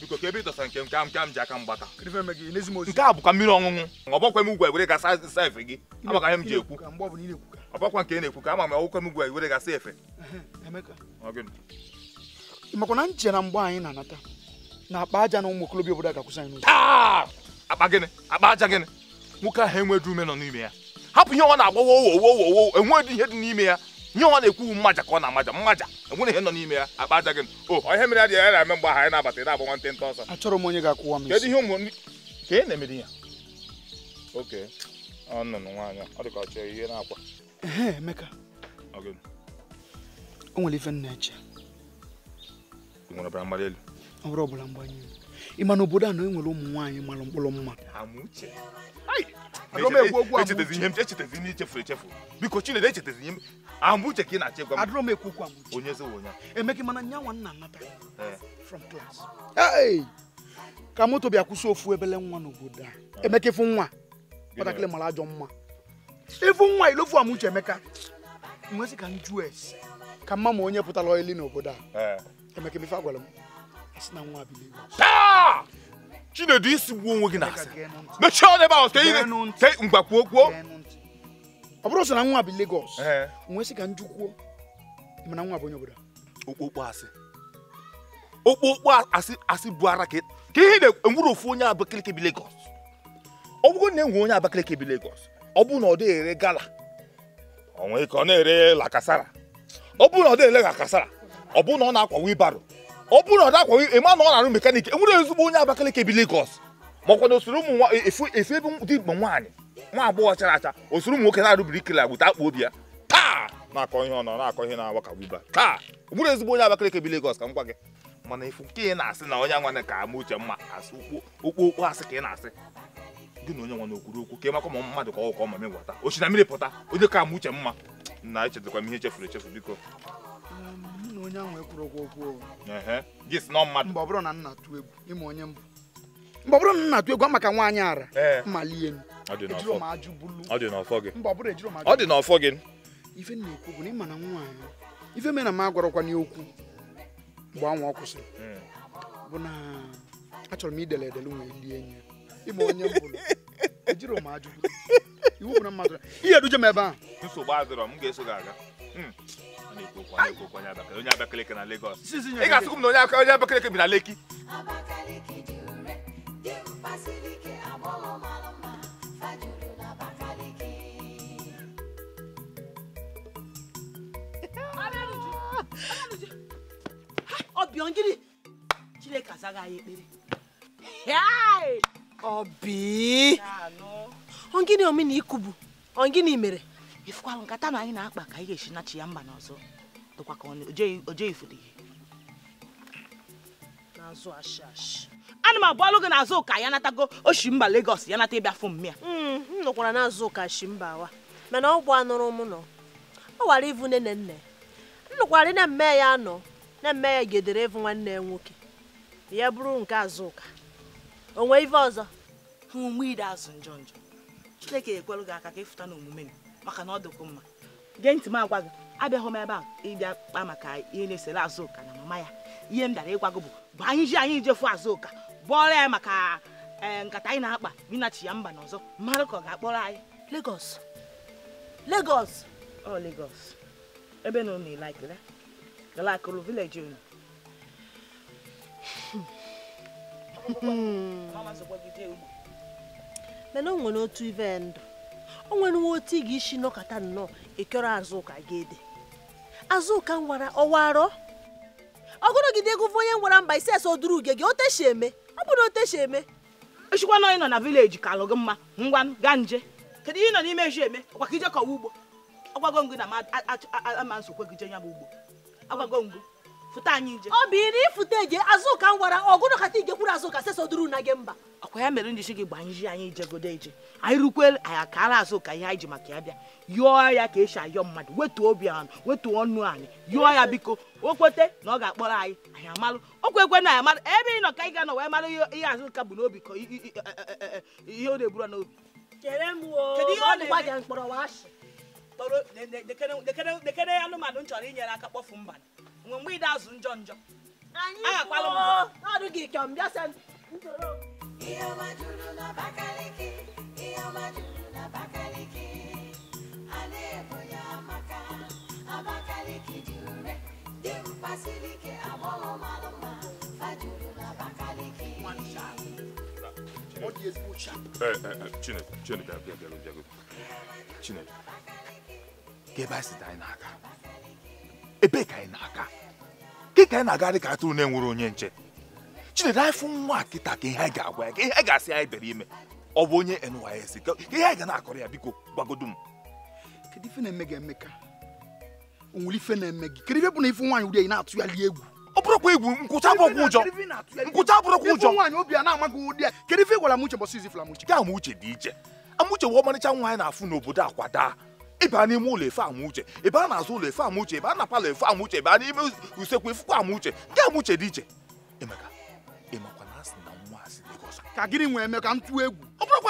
biko ka ebe ịdọsa nke nke m ji aka gbata nke a bụkwa mmiri ọṅụṅụ ọgbakwa m ugwu were gasa efe gị ihe m nke na-ekwu ka ama m ọgbakwa m ugwu were gasa efe na nche na mgbe anyị na-anata na akpa aja na ụmụ obodo ga-akwụsị anyị akpa gịnị akpa aja gịnị nwoke ahụ enweghị nọ n'ime ya hapụ ihe ọ na-agbawa owo owo owo ihe dị n'ime ya nye ọ na-ekwu mmaja ka ọ na-amaja mmaja enwere ihe nọ n'ime ya akpa aja gị o ihe mere adịghị ya na-eme mgbe ahụ ya na-abata ị na-abụ nwantị nta ọsọ achọrọ m onye ga-akwụwa m kedu ihe ụmụ ka ị e na-emere ya oke ọnụnụ nwaanyị ọ dịka ka ọ chọrọ ihe na-akwa Emeka o nwere ife nna eche nwere ọbara mgbali elu ọ bụrụ ọbara mgbali elu ị ma na obodo a na e nwere ụmụ nwaanyị mara mkpụrụ mma echetezi ihe ichefu biko Chinedu echetezi ihe uche ka ị na-achọ ịgwa m onye ezewo onye emeghị mana nya nwa nna anata eh. ka moto bịa kwụsị ofu ebele nwa n'obodo a eh. emeka ịfụ nwa kpatakịrị mara ajọ mma ịfụ nwa ilofu emeka ka m ka mma ma onye pụtara ọyịlị n'obodo a eh. emeka ife agwara m asị na nwa chinedu isi gbuo onwe gị na-asị mechie ọnụ n'ebe ahụ tee ihe tee ngwa kwuo ọ bụrụ sọ na nwa bụ Lagos nwee sị ka nju kwuo mana nwa bụ onye obodo okpokpo asị okpokpo asị asị bụ ara ka ihe na-enwere ofu onye Abakaliki bi Lagos ọ bụrụ na enwe onye Abakaliki bi Lagos ọ bụ na ọ dịghị ere gala ọ nwee ka ọ na-ere lakasara ọ bụ na ọ dịghị ere lakasara ọ bụ na ọ na-akwa wibaro ọ bụrụ na ọ dakwa ịma na ọ na-arụ mekanik enwere ezigbo onye Abakaliki bi Lagos makwa na osoro ụmụ efu ebe dị mgbe nwaanyị nwa agbọghọ chara acha osoro ụmụ nwoke na-arụ birikila agbụta akpụ obi ya taa na-akọ ihe ọ nọ na-akọ ihe na-awa ka gbuba taa enwere ezigbo onye Abakaliki bi Lagos ka m gwa gị mana ifu nke ị na-asị na onye nwa ka ama uche mma asị okpokpo asị ka ị na-asị gị na onye nwa na okwuru okwu ka ịmakwa ma mmadụ ka ọ ka ọ ma megwata ochi mmiri pụta onye ka ama uche mma na echetakwa m ihe e chefuru echefu biko na onye ahụ ekwuru okwu okwu mgbe ọ bụrụ na nna atụ egwu ịma onye mbụ mgbe ọ bụrụ na nna atụ egwu maka nwaanyị ara mmalie ọ dị n'ọfọ gị ife na-ekwu bụ na ịma na nwaanyị ife mere na m agwarọkwa n'okwu mgbe anwa ọ hmm. bụ na achọrọ m idele edele nwee ndị enyi ịma onye mbụ ejiro m ajụ iwu na mmadụ ihe m ebe a Hmm. onye Abakaliki na Lagos ị ga-asịkwu m na onye Abakaliki bi na Leki ọbịọ gịnị Chineke anyị ọbi ongịnị omena ikubu ongịnị mere ifụkwalụ nkata na anyị na-akpa ka anyị ga-esi nachi ya mba n'ọzọ dịkwa ka o jeghị ifuru ihe n'azụ ashị ashị ana m abụọlụ gị n'azụ ụka ya natago mba Lagos ya nata ịbịa fụ mmịa m hmm, nọkwara n'azụ ụka shimba awa mana ọ bụ anụrụ m nọ ọ wara ịvụ nne nne m nụkwara na mme ya anọ na mme ya gedere ịvụ nwanne ya nwoke ya bụrụ nke azụ ụka onwe ive ọzọ ha ume ide azụ njọ njọ Chineke ekwelụ gị aka ka ịfụta n'omume gị maka na ọ dịkwu mma gee ntị m agwa gị abịaghị m ebe a ịbịa kpa maka ihe na-esere azụka na mama ya ihe m dara ịgwa gị bụ bụ anyị ji anyị jefu azụka bụọrọ ya maka e, nkata anyị na-akpa binachi ya mba n'ọzọ mmadụ ka ọ ga-akpọrọ anyị legos legos ọ Lagos ebe na unu laikere galakụrụ vileji unu mana o nwere otu ive ndụ o nwa otu ị ga-esi nọkọta nnọọ ekere azụka ga-ede azụka nwara arọ ọwarọ ọgụrụgide gụva onye nwara mba ise ese oduru uge gị oteshi eme ọ bụrụ oteshi eme echikwa na onye nọ na vileji ka alụ gị mma ngwa gaa nje kedu ihe ị nọ n'ime eji eme ọkwa ka ije kọwa ugbo ọgwago ngụ na ama nsokwe gị je ya bụ ugbo agwago ngụ fụta anyị nje ọ bụ iri ifụta eje azụka nwara ọgụrụ kata ijekwuru azụka sesoduru na gị mba ọkwa ya mere njichi gị gbaa nji anyị ijegodo eje anyị rukwe anya ka ara azụ ka ihe anyị ji maka ya bịa yọọ ya ka esi ayọ mmadụ wetu obi anụ wetu ọnụ anyị yọọ ya biko o kwete na ọ ga-akpọrọ anyị anyị amalụ o kwekwe na anyị amalụ ebe ị nọ ka anyị ga-anọ wee mara ihe azụ ka bụ n'obi ka e, e, e, ihe ọ na-eburu n'obi dekere anụmanụ m chọrọ inyere aka kpọfu mba nwe mgbe ide azụ njọ njọ agakwala m ọma juru a na ya maka Abakaliki ike agbọghọ ebe na-aga ebe ka anyị na-aga ke ka ị na-aga dị ka atụrụ na-enwere onye nche Chineke anyị nwa kịta ka ihe anyị ga asị anyị bịara ime ọ bụ onye NYSC ihe anyị ga na-akọrọ ya biko gbagodu m ife na-eme gị emeka onwere ife na-eme gị kedu ife bụ na ife nwaanyị uri na-atụgharị atụ ya egwu ọ bụrụkwa egwu nkwụcha bụrụkwa ụjọ nkwụcha bụrụkwa ụjọ nwaanyị obi a na-amaghị ụdị ya kedu ife gwara m uche bọsị izi fụla m uche uche dị iche ama uche wee ọmarịcha nwaanyị na-afụ n'obodo akwadaa ịba n'ime ụlọ efe ama uche ịba n'azụ ụlọ efe ama ịba na palọ efe ama ịba n'ime usekwu efukwa ama uche gị dị iche emeka ịmakwa ka gịnị nwe eme ka egwu ọ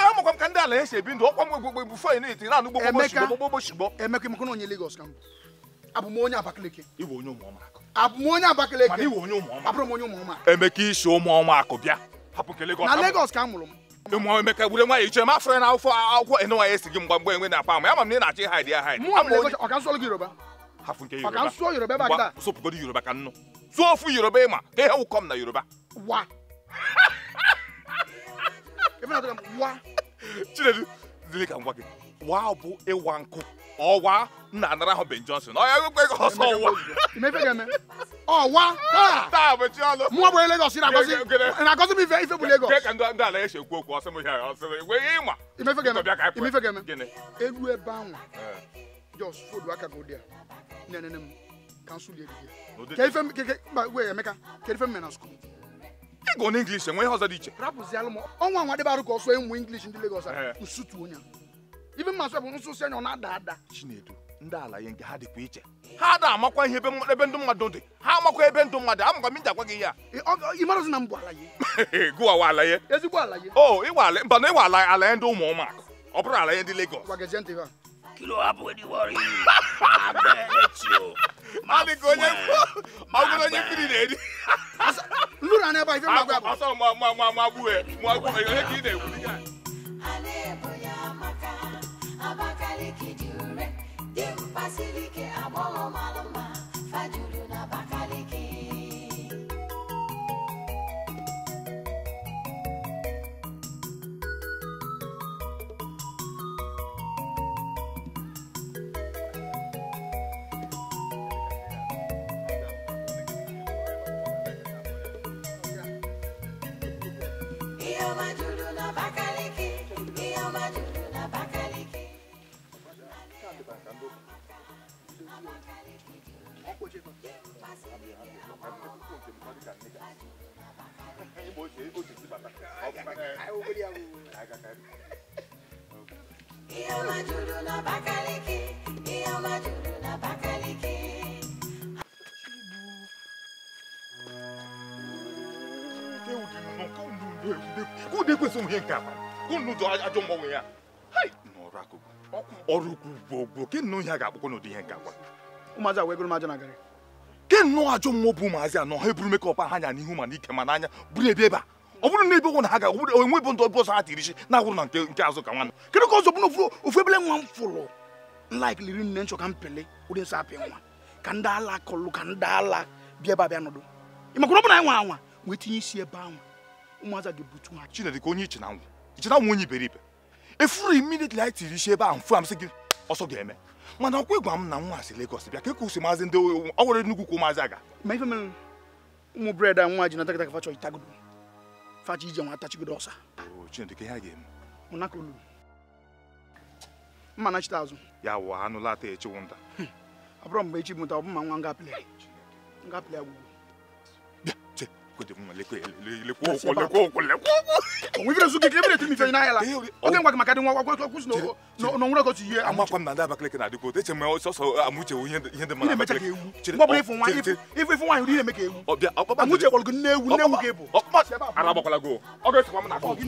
ya makwa m ka ndị ala ya si ebi ndụ ọkwa m gbogbo egbu fọ na eti na-anụ gbogbo emeka emeka onye Lagos ka m abụ m onye Abakaliki abụ m onye Abakaliki abụrụ m onye ụmụọma emeka isi bịa hapụ Lagos na Lagos ka m mụrụ m ụmụ emeka gbure nwa ya ma na akwụkwọ ya esi gị mgba mgbe na ama m ị na-achọ ya yoruba ịma ka ihe na yoruba If not, I'm wa. Chinedu, Zili can work it. Wa bu e wanku. Or wa na another ho Ben Johnson. Oh, I go go so wa. You make them. Oh, wa. Ah. Ta be chi alo. Mo bo Lagos ira go si. And I go to be very fair Lagos. Ke kan do do ala e se ku ku o se mo here. O se we e ma. You make them. You make them. Gene. Elu e ba won. Eh. Just food wa ka go there. Ne ne ne. Cancel the idea. Ke ife ke ke wait, Emeka. Ke na school. ịgụ na English enwe ihe ọzọ dị iche rapụzialụ m ọnwa nwa dịbarụ ka ọsọ ịmụ English ndị Lagos nsutu eh. onye ibe mmasị ọ bụ nsụsụ anya ọ na-ada ada Chinedu ndị ala ya nke ha dịkwa iche ha ada amakwa ihe ebe ndụ mmadụ dị ha amakwa ebe ndụ mmadụ amakwa m ji agwa gị ya ịmarazi na m bụ ala ya gụwawa ala ya ezigbo ala ya o oh, ịwa ala mba na ịwa ala ya ndị ụmụ ụmụaka ọ bụrụ ala ya ndị Lagos kí ló wá bọ̀ ní wọ́ọ̀rì kiri nìyẹn ni. lura ní ẹ báyìí fẹ́ máa Iyo majudu na bakaliki, iyo majudu na bakaliki. Kó de kwesí òun yẹn nǹkan àpá, kó nù jọ ajọ mọ òun yẹn. N'ọrụ akụkụ, ọrụ ukwu gbogbo, kí nù ihe a ga-akpọkọ n'ụdị ihe nǹkan àpá. Ụmụazị a wee gụrụ m ajọ na garị. ke nnọọ ajọ mmụọ bụ ụmụazị anọ ha eburu mekọp ha anya n'ihu ma ike ma n'anya buru ebe ebe a ọ bụrụ na ebe ụgwọ na ha ga-enwe bụ ndụ ọbụ ọsọ ha tiri na-agwụrụ na nke nke azụ ka nwanne kedu ka ọzọ bụrụ ofu ebele nwa m fụrụ laik liri nne nchọ ka m ụdị nsọ apị nwa ka ndị kọlụ ka ndị ala bịa ebe ọ bụ nwa anwa wee tinye isi ebe ahụ ụmụazị ga gị ọsọ ga-eme mana ọkwa ịgwa m na nwa si Lagos bịa ka ekwu maazị ndị ọ nwere nnukwu kwụ maazị aga ma ife mere ụmụ bred nwa ji nata kịta ka facha itagodo facha ije nwa atachigodo ọsa Chineke ha ga-eme mụnakolu mma na chita azụ ya wụ anụ lata echiwu nta ọ bụrụ mgbe echi mụta ọ bụ ma nwa ngapịlị ngapịlị agwụgwụ lekwa ụkwụ lekwa onwere su gị ebere tiri ife n'ahịa la oge ngwa gị maka dị nwa gwagwa kwụsị n'onwere ogotu ihe amakwa m na ndị Abakaliki na eche sọsọ amuche ihe dị mara emecha ka ewu mgbe ọbụla ifu nwaanyị nwaanyị ka ewu amuche gwọrọ gị nne ewu nne ewu ebu ara agbakwala gị ọ m na gị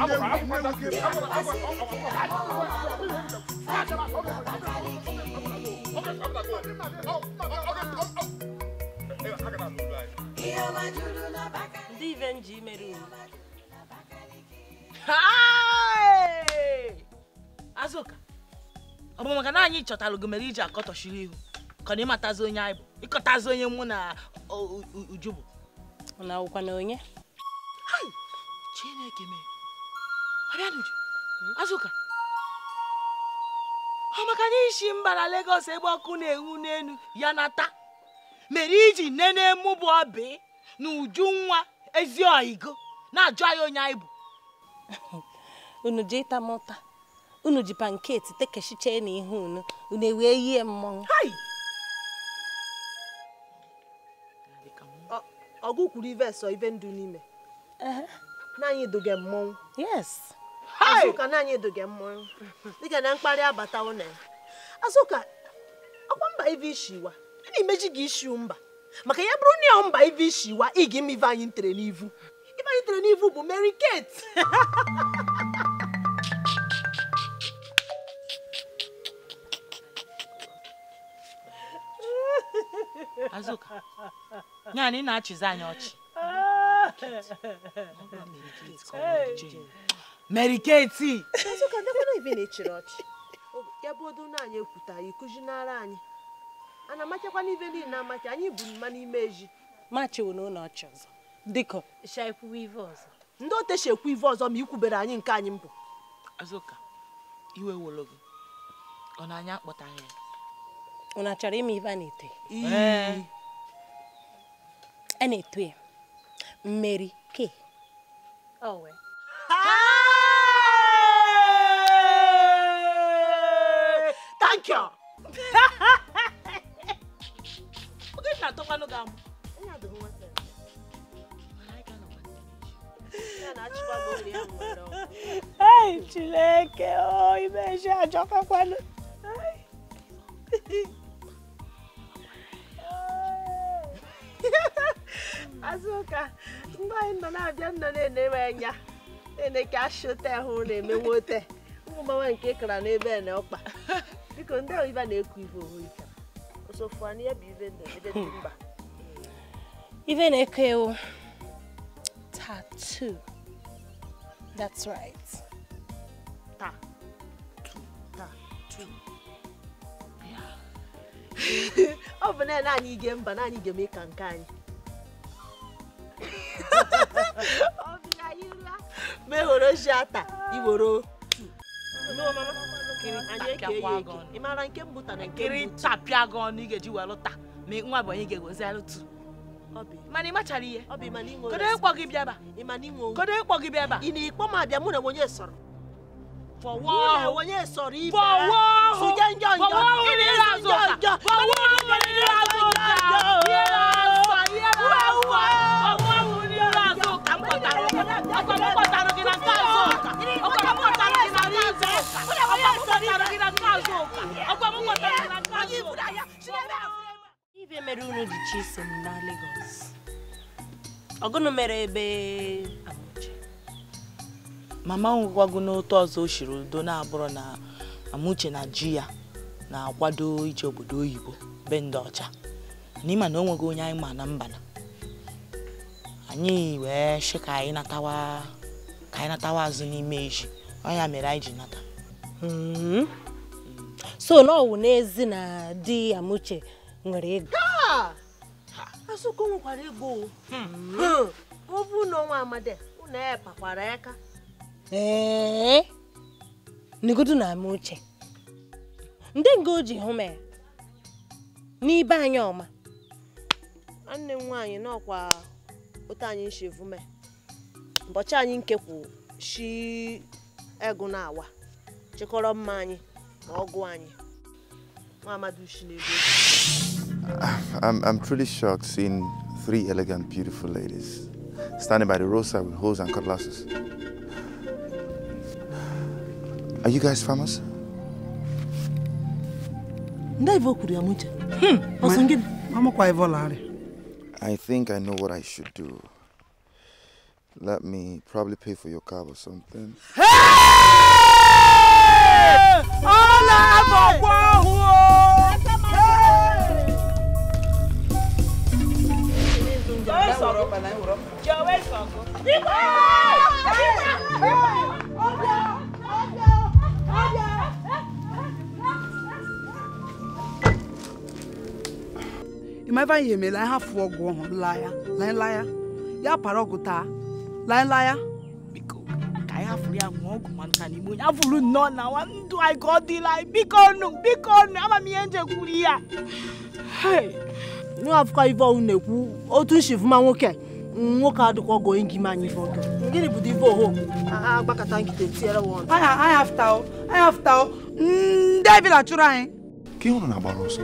nne ewu ndị azụka ọ bụ maka na anyị chọtalụ gị mere iji akọtọchiri ihu ka na ịmatazi onye anyị bụ ịkọtazi onye mụ na uju bụ na ọwụkwa na onye chineke mere abịanuju azụka ọ maka na mba na Lagos ebe ọkụ na-enwu n'elu ya nata mere iji nene na-emụbụ ọbị na uju nwa ezi oyigo na-ajụ anyị onye anyị bụ unu ji ịta mụta unu ji panketi tekechiche na ihe unu unu ewee yie mmọnwụ ọgụ kwuru ive sọ ive ndụ n'ime naanị eduge mmọnwụ yes azụka naanị eduge mmọnwụ dịka na mkparị abata na ya azụka ọkwa mba ive ishiwa ị na-emeji gị ishiu mba maka ya bụrụ na ya mba ive ishiwa ị ga-eme ive anyị ntere n'ivu ama itere n'ivu bụ Mary Kate Azụka nyaanị na-achịzi anyị ọchị Mary Kate Azụka ndekwana ibe na-echiri ọchị ya bụ odo na anyị ekwuta ya ịkụzinara anyị a na amachakwa n'ibe niile amacha anyị bụ mma n'ime eji machiwo n'ụlọ ọchị ọzọ dịka ndị otechi ekwu ive ọzọ ma ikwubere anyị nke anyị mbụ Azụka iwe wolo gị ọ na-anya akpọtaghị ya ụna achọrọ ime ive a na-eto a na-eto ya mmeri ke thank you oge na-atọkwanụ gị amụ Ai, Chineke, oh, imeji ajọkakwana. Azụka, mgbe anyị nọ na-abịa ndo na-enere anya, na ka ashụte ahụ na-emewe ote, ụmụmmanwe nke kara n'ebe na ọkpa. Biko, ndị oyiba na eku ibe ohu ikara. Osofu anyị ya bụ ibe ndụ ebe dị mba. Ibe na-eke ewu. part two. That's right. Part two. Part two. Yeah. ọ bụ na anyị ga mba na anyị ga-eme ka nke anyị. Obi anyị la. Meworo shata Ị maara nke mbụ ta na nke mbụ. tapịa gị ọnụ ị a wee lụta ma nwa bụ onye ga-egozilụ mani machari ye kodo ekpɔ gị bịaba kodo ekpɔ gị bịaba ị na-ekpọ m abịa mụ na onye sọrọ fọwọ́ onye sọrọ ife fọwọ́ sujẹ njọ njọ fọwọ́ onye sọrọ njọ fọwọ́ onye sọrọ njọ fọwọ́ onye sọrọ njọ ọkọlọpọtara gị na nke azụ ụka ọkọlọpọtara gị na nke azụ ụka ọkọlọpọtara gị na nke azụ ụka ọkọlọpọtara gị na nke azụ ụka. ibe mere unu dị chi iso m na Lagos ọgụnụ mere ebe mama m gwago n'otu ọzọ o shiri udo na-abụrụ na Amuche na ji ya na-akwado ije obodo oyibo be ndị ọcha na na o nweghị onye anyị ma na mbana anyị wee shi ka anyị natawa azụ n'ime iji ọnya mere anyị ji nata hmm. so na n'ezi na di Amuche nwere ego asụkụ nwekwara ego hmm. ọ na ọnwa amadi ụnụ ya pakwara aka ee negodu na ama uche ndị nga o ji hụ m e, n'ibe anyị ọma nwanne m nwaanyị n'ọkwa otu anyị nshi vume ụbọchị anyị nke kwụsị shi egụ na awa chịkọrọ mma anyị na ọgụ anyị Ah, I'm, I'm truly shocked seeing three elegant, beautiful ladies standing by the roadside with hoes and cutlasses. Are you guys farmers? Hmm, I think I know what I should do. Let me probably pay for your cab or something. Hey! ọ̀la àbọ̀wọ̀ ọ̀hún o. You're welcome. ịmaba ihe mere anyị hafụ ọgwụ ọhụrụ laa ya laa laa ya ya para ọgwụ taa laa laa ya ayafuru ya ṅụọ ọgwụ maka na igbo nyafuru nnọọ na nwa ndụ anyị ka ọ dịla anyị biko nụ biko nụ ama m ihe nje kwuru ya nụ afụkọ ive ọhụụ na-ekwu otu nshivuma nwoke nwoke adịkwa ọgọ gị ma anyị ive ọgọ gịnị bụ dive oho agbakọta nkịta tiere wọn anyị afta anyị afta ndị ebila chụrụ anyị ka ị hụrụ na agbara ọsọ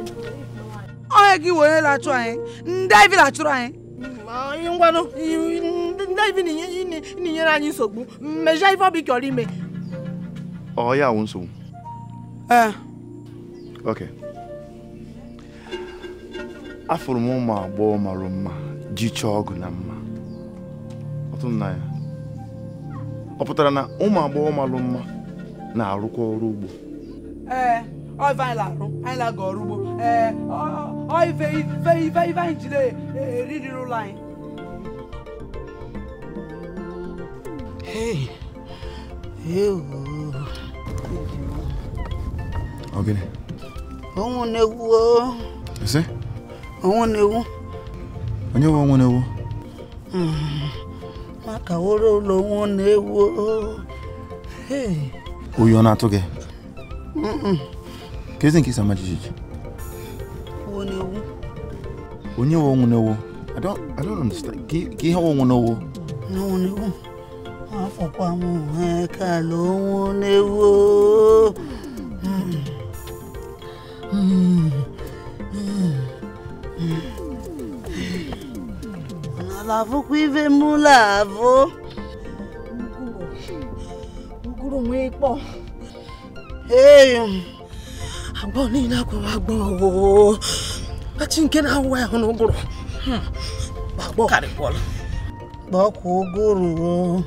onye gị were lachụ anyị ndị ebila chụrụ anyị ngwanụ ndị na-enyere anyị nsogbu mejaa ife ọbụ ịchọrọ ime ọ ya wụ nsogbu ee ok afụrụ m ụmụ agbọghọ mara mma ji chọọ ọgụ na mma ọtụ na ya ọ pụtara na ụmụ agbọghọ mara mma na-arụkwa ọrụ ugbo ee ọ ife anyị la-arụ anyị la ga ọrụ ugbo ee ọ ife ife ife ife anyị jide eririri ụlọ anyị Ogene. Ọnwụ na-egwu o. Ese? Ọnwụ na-egwu. Onye nwe ọnwụ na-egwu? Maka woro ụlọ ọnwụ na-egwu o. Oyi ọ na-atụ gị? Doesn't so much. When you won't know, I don't, I don't understand. Give her one know. No, no. Àfọ̀pamọ́ ẹ̀ka ló ń léwó. Ọ̀nà abụọ niile akwawa agbọọ kachi nke na-awụwa ahụ na ụgụrụ gbakwa ụgụrụ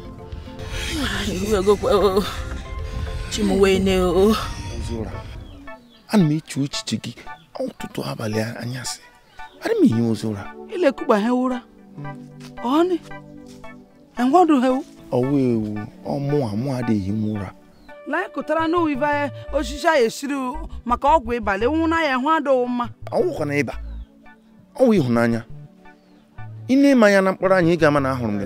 ana m eche echiche gị ọtụtụ abalị anyasị ana m enye ozi ụra ilekụgba ha ụra ọnị ewu ọmụ amụ adịghị m ụra na-ekotara na uive osisi a esiri maka ọgwụ ịba e lenwu na ya hụ adịghị mma ọwụkwana ịba ọwụ ịhụnanya ị na-eme anya na mkpụrụ anyị ị ga-ama na ahụrụ m gị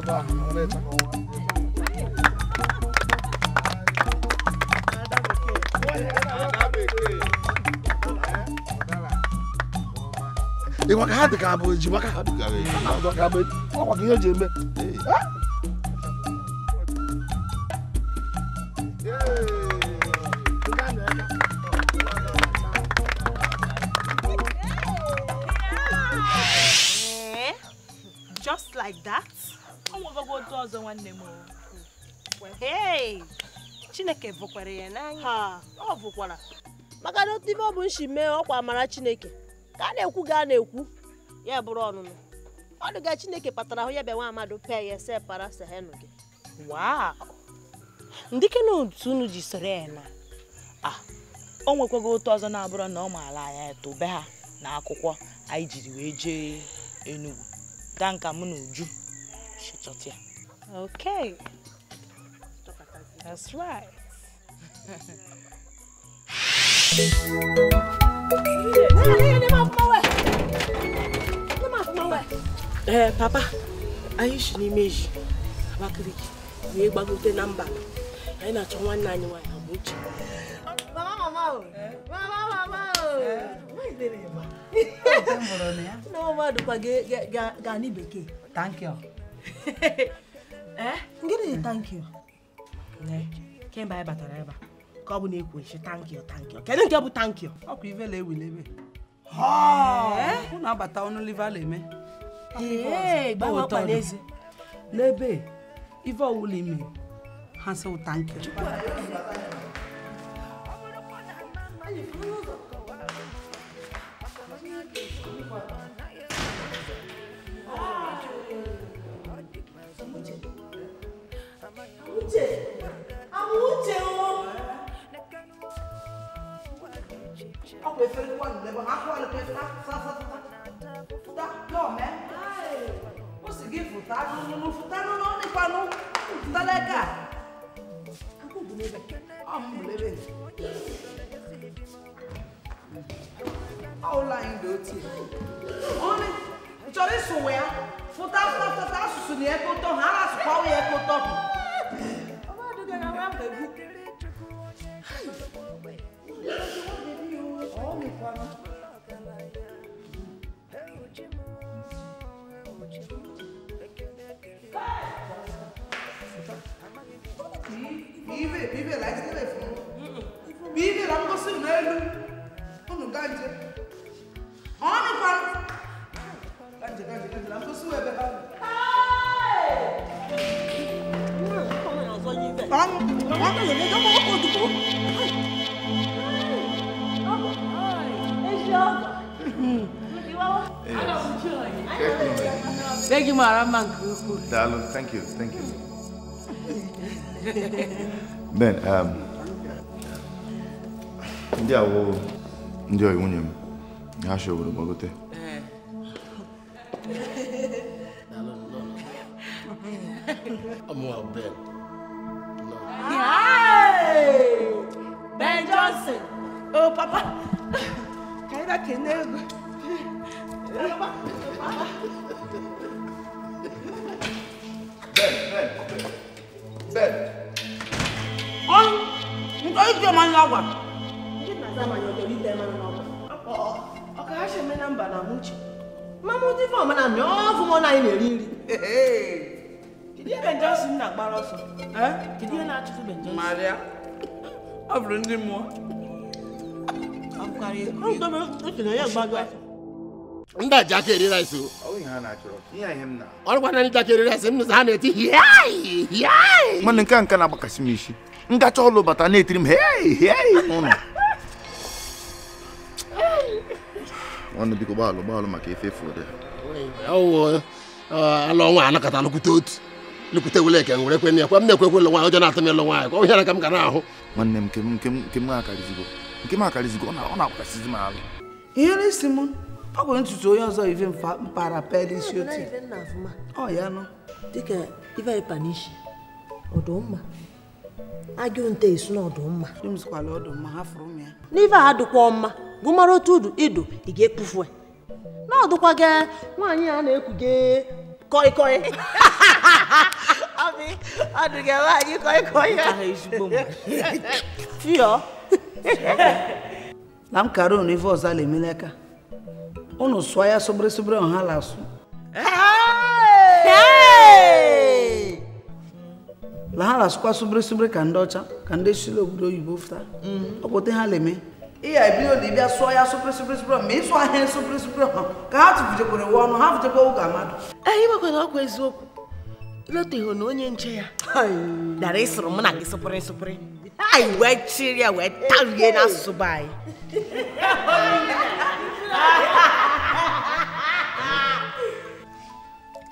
n'anya ìwọ ká dìgbà àbò èjì wọ́n ká dìgbà àbò èjì wọ́n kò kí Just like that? Hey! chineke vụkwara ya n'anya ọ vụkwara maka na otu ibe ọ bụ nshi mee ọkwa mara chineke ka a na-ekwu ga a na-ekwu ya bụrụ ọnụnụ ọdụga chineke kpatara ahụ ya bịa nwa amadụ pee ya ese para sehenu gị ndịke na otu unu ji soro ya na a ah, o nwekwago otu ọzọ na abụrọ na ọ maala anya tobe ha na akwụkwọ anyị jiri wee jee Enugu danka mụ na Uju chọta ya That's right. Eh, papa, are you si n'ime eji Abakaliki wee gbagote na mba anyị na-achọ nwanne anyị nwaanyị abụ uche mama mama oh. mama, mama oh. mama o nne mmadụ kwa ga n'i bekee thank you eh gịnị thank you kemgbe anyị batara ebe a ka ọ bụ na-ekwu echi tankio tankio kedu nke bụ tankio ọkwa ive la ewele ebe unu abata ọnụ liva la eme n'ebe ive ọwụla ime ha sị tankio Uche! mucho. Ông lấy phân quần để bằng ác qua là kia ta sa sa ta ta lo mẹ ai có sự ghi phụ ta nó nó phụ ta nó nó đi qua nó phụ ta đây cả anh cũng bùn lên ông bùn lên ông lại đứa chị ông đi cho đi sùn vậy phụ ta ta ta ta sùn nhẹ cô to hà là sùn bao nhẹ cô to má bẹ̀rù. ọwọ́ mi pa mi. Bibe, bibe la jitebe fun. Bibe la mkosi Thank you, Marama. Darling, thank you, thank you. Ben, um, ndị awo ndị oyi nwunye m ha shoburu gbagote ụmụ ọmana na ọ fụ mụ na anyị na-eri nri kedu ihe benjọsin na-agbara ọsọ kedu ihe na-achụfu benjọsin marịa ọ bụrụ ndị mmụọ ndị a ji aka eri rice o ọrụ gwana ndị aka eri rice m ha na-eti hiai mana nke a nke na-agbakasị m isi ngacha ọlụ bata na-etiri m hei hei n'ụlọ nwanne biko gbalụ gbalụ maka efe efu ụdị alụ nwa anakọta nụkwute otu lukwute wele eke nwere ekwe ekwe m na-ekwekwe ụlọ nwaanyị ọjọọ na-atụ m ịlụ nwaanyị ọ hịara ka m ga na-ahụ nwanne m nke m nke m ọ na-akwakasịzi m ahụ ihere isi m ọ bụ ntutu onye ọzọ ive mpaghara pel otu ọ ya nọ dịka ive panishi ọdụmma agụ esu na ọdụmma n'ive a adịkwa mma gụmara otu ga-ekpufu n'ọdụkwa gị nwaanyị a na-ekwuge koi koi ọdụga nwaanyị koi na m kara unu ife ọzọ ala emela aka unu sụọ ya sụbịrị sụbịrị ọha la asụ la ha na-asụkwa sụbịrị ka ndị ọcha ka ndị sila obodo oyibo fụta mm. ọpụta ha la eme E aí, bi asọ ya asọ presi presi presi ma ịsụ ahịa ịsụ presi presi ma ka ha tụfujekwara ụwa ọnụ ha futekwa ụga mmadụ. Anyị nwekwara ọkwa eziokwu. Loteho na onye nche ya. Dara ịsụrụ mụ na gị sụpụrụ sụpụrụ. Anyị wee chiri ya wee tarie n'asụsụ be anyị.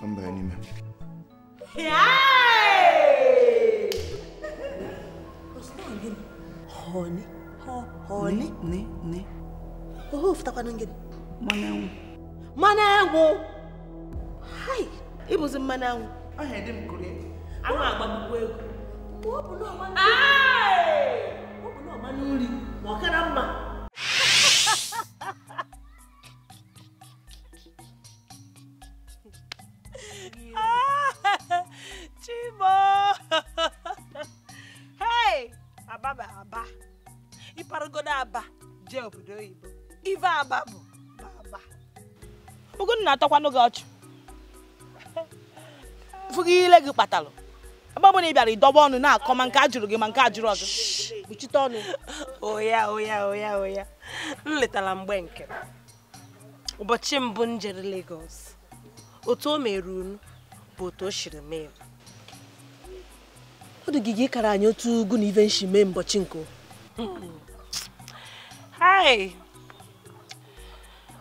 Ka m banye n'ime. Honey. Honey? Ne, ne. Oh, uftakwa nangini? Mwana yangu. Mwana yangu? Hai, ibuzi mwana yangu. Ahe, ndi mkule. Ama agbabu kweku. Mwabu no mwana. Hai! Mwabu no mwana uli. Mwakana mma. Chimo! Hey! Ababa, ababa. ịparagodo aba jee obodo oyibo ife aba bụ aba Ugonna atọkwanụ gị ọchụ fụgị ile gị kpatalụ ebe ọbụla ị bịara ịdọba ọnụ na-akọ ma nke a jụrụ gị ma nke a jụrụ ọzọ kpuchite ọnụ oya oya oya oya m letara mgbe nke ụbọchị mbụ m jere legos otu o mere unu bụ otu o siri mee ọ dị gị ịkara anyị otu ugwu na ive nshi mee mbọchị nke Hi.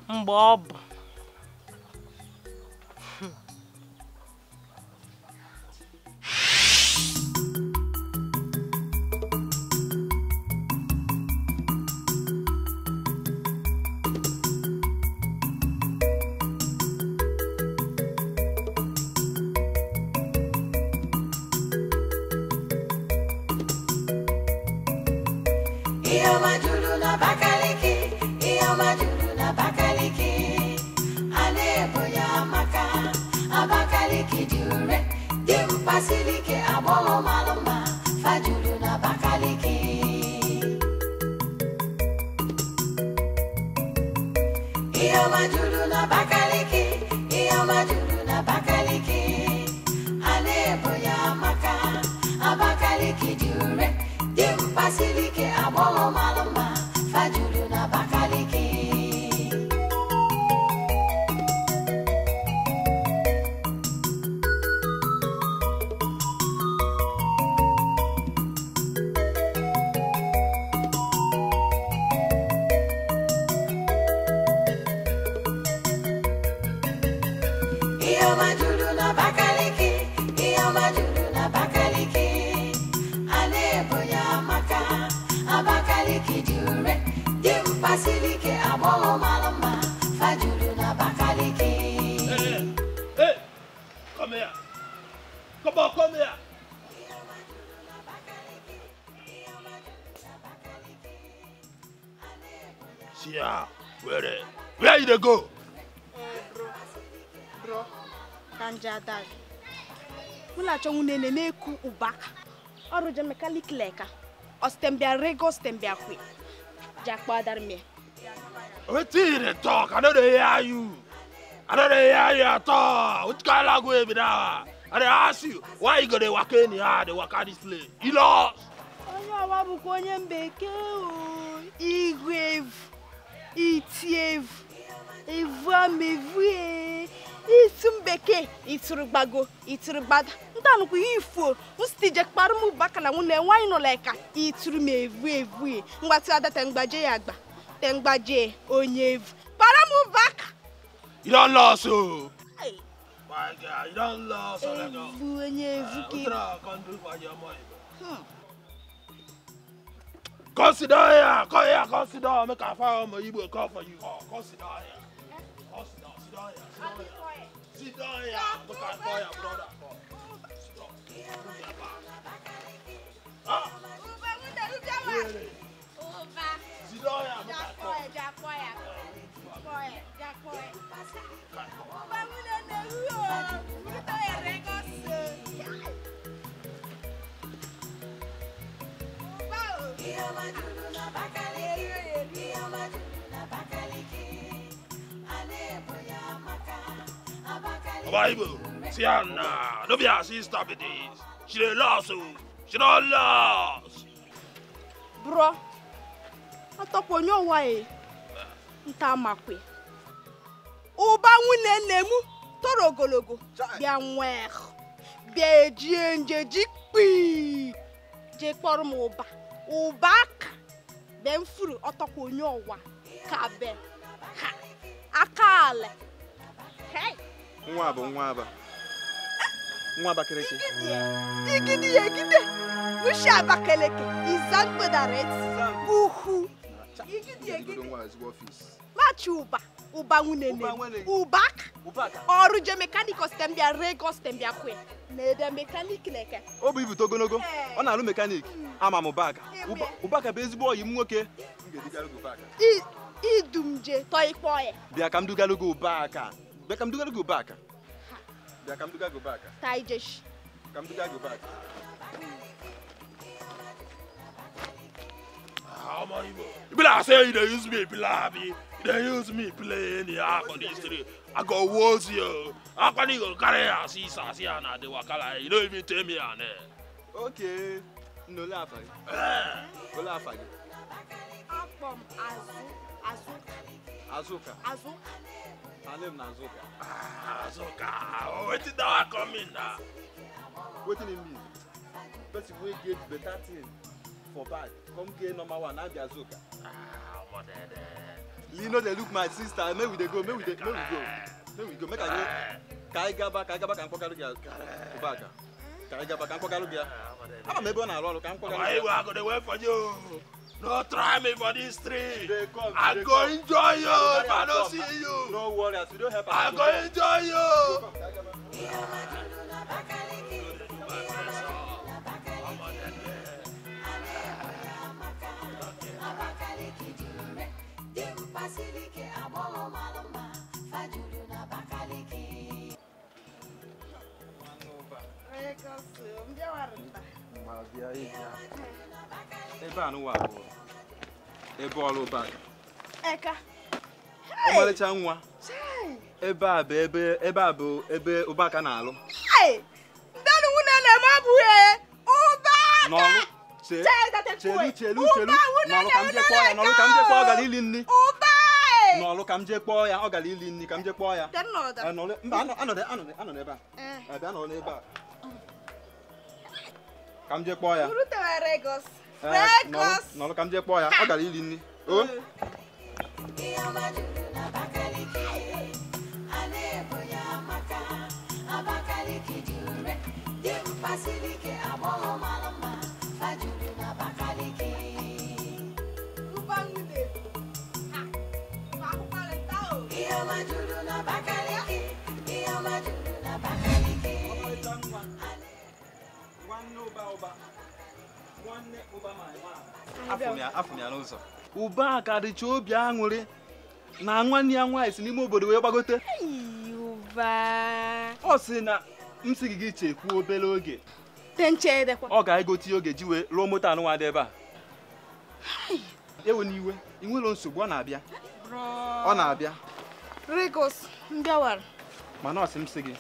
Mgbe ọ bụ unene na-eku ụba ọrụje mekalik leka ọstembia rego stembia kwe jakpadarme wetin you dey talk i no dey hear you i no dey hear you at all which kind language be that i dey ask you why you go dey waka anyhow dey waka onye ọwa bụkwa onye mbekee o igwe evu iti evu evu amevu evu ee isu mbekee itụrụ gbago itụrụ gbada nnukwu ihe ifuo msitije kparụ m baka na nwunye nwaanyị nọla ka itụrụ m evu evu mgbatị ada temgbaje ya agba temgbaje onye evu kpara m baka make a fire on my Igbo call for you. Oh, consider sit down ya, sit down sit down ya, look at fire, brother. Bacalhau, bacalhau, bacalhau. Bible, see Anna, no be her sister be this. She dey lost o, oh. she don lost. Bro, atọpụ onye ụwa e, nta amakwe. Ụba nwunye nne m toro ogologo bịa nwee bịa ejie njeji kpii jee kpọrọ m ụba ụba aka bee mfuru ọtọkwa onye ọwa ka be ha aka ala hey. nwa bụ nwa aba nwa abakeleke machi ụba ụba nwunene ụbaka ọrụ je mekanik ostembia rego ostembia kwe na-ede mekanik na-eke o ibute ogologo ọ na-alụ mekanik hmm. ama m ụbaka ụbaka bụ ezigbo ọyị m nwoke idumje tọ ikpe bịa ka m dugara gị ụbaka But I'm gonna go back. Yeah, I'm gonna go back. Taijish. I'm gonna go back. How many? Bila say they use me, bila me. They use me playing the app on the street. I go woes you. I can't even carry a sisa siana de wakala. You don't even tell me on it. Okay. No laugh. Eh. No laugh. Akpom azu azu. Azuka. Azuka. Her name na Azuka. Ah, Azuka. Oh, wetin that one come in na? Wetin e mean? if we get better thing for bad. come get number one, na be Azuka. Ah, omo dede. Lee no dey look my sister, make we dey go, make we dey, make we go. Make we go, make I go. Ka anyị gaba, ka anyị gaba ah. ka m kpọkalụ gị ụbaka. Ka anyị gaba ka m kpọkalụ gị ya. Ama m ebe ọ na-arụ ọrụ ka m kpọkalụ gị ya. Ọma No try me for this tree. They come, I go come. enjoy you if I don't see you. No worry, as you don't help I go enjoy you. Thank you. I'll be here. Eba no wa bo. Eba all over. Eka. O male cha nwa. Eba be ebe eba bo ebe ubaka na alu. Hey. Danu una na ma bu e. Ubaka. No. Che. Chelu chelu chelu. Na lo kam je kwa ya, na lo kam je kwa ga lili nni. Ubaka. Na lo kam je kwa ya, o ga lili nni, kam je kwa ya. Dan no da. Ano le, mba ano ano de ano de ano de ba. Eh. Ebe ano le ba ka m jee kpọọ ya nọrọ ka m jee kpọọ ya ọ gara iri nri o mm. ụba n'ụzọ ụba a ka dịcha obi aṅụrị na nwanne ya nwaanyị si n'ime obodo wee gbagote ọ sị na m sị gị chekwuo obere oge ọ ga-egote oge ji wee rụọ moto anụnwa dị ebe a ewe n'iwe ị nwere nsogbu ọ na-abịa ọ na-abịa mana ọ sị m sị gị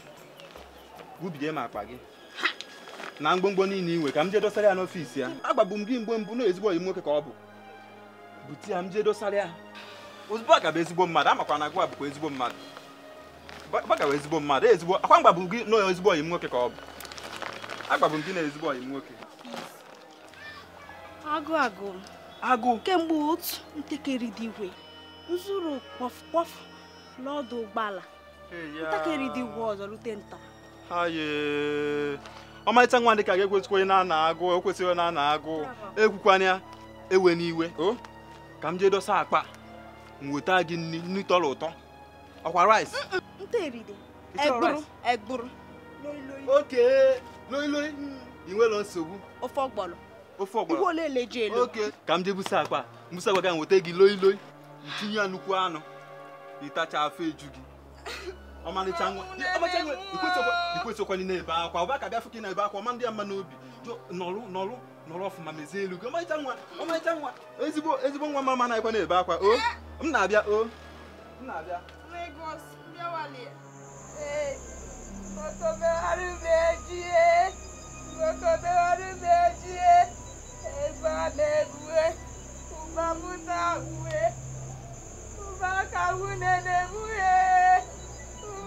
bubido m akpa gị na mgbomgbo niile inwe ka m jee dosara ya n'ọfiisi ya agbagbu m gị mgbe mbụ na ezigbo oyi nwoke ka ọ bụ bute ya m jee dosara ya ozugbo ọ gaba ezigbo mmadụ amakwa na agụ a bụkwa ezigbo mmadụ gbagawa ezigbo mmadụ ezigbo akwa mgbagbu gị na ezigbo oyi m nwoke ka ọ bụ agbagbu m gị na ezigbo oyi m nwoke agụ agụ agụ kemgbe otu ntakịrị dị igwe nzuru kpọf kpọf n'ọdụ ụgbọala ntakịrị dị igwe ọzọ rute nta ọmarịcha nwa dịka ga-ekwesịkwa na ana agụ ekwesịghị na ana agụ ekwukwanya ewe n'iwe ka m jee dosa akpa m weta gị nri nri tọrọ ụtọ ọkwa rice oke loi loi ị nwere nsogbu ofe ọgbọrọ ofe ọgbọrọ oke ka m jee busa akpa mbusa akpa ga weta gị loi loi ntinye ya nnukwu anụ ịtacha afọ eju gị ọmalịcha nwa ikwesokwala na-ebe akwa ụba ka bịa fụka ị na-ebe akwa ọma ndị ya mma n'obi nọrụ nọrụ nọrọ ọfụma mezie elu gị ọmalịcha nwa ọmalịcha nwa ezigbo ezigbo nwa mama na-ekwe na-ebe akwa o m na-abịa o m na-abịa ụba mụ na uwe ụba ka nwunye na-emuhe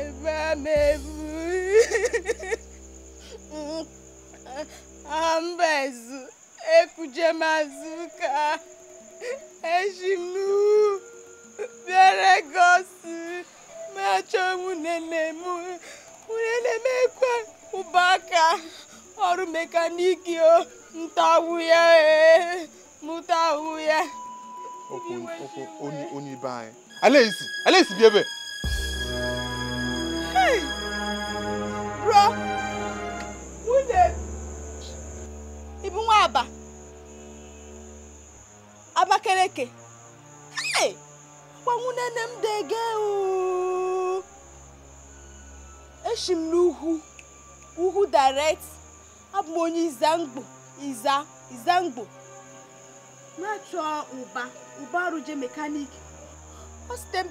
ebe m ebu ambezu ekuje mazuka eji m bịara gosi machọ nwunene m nwunene m ekwe ọrụ mekaniki o ntawu ya mụtawu ya onye ibe anyị alaezi alaezi bi ebe bro nwunye ibu nwa aba abakeleke gwanwu nene m dege eshi m n'ugwu ugwu direct abụ m onye izangbo iza izangbo na-achọ ụba ụba arụje mekanik ọ site m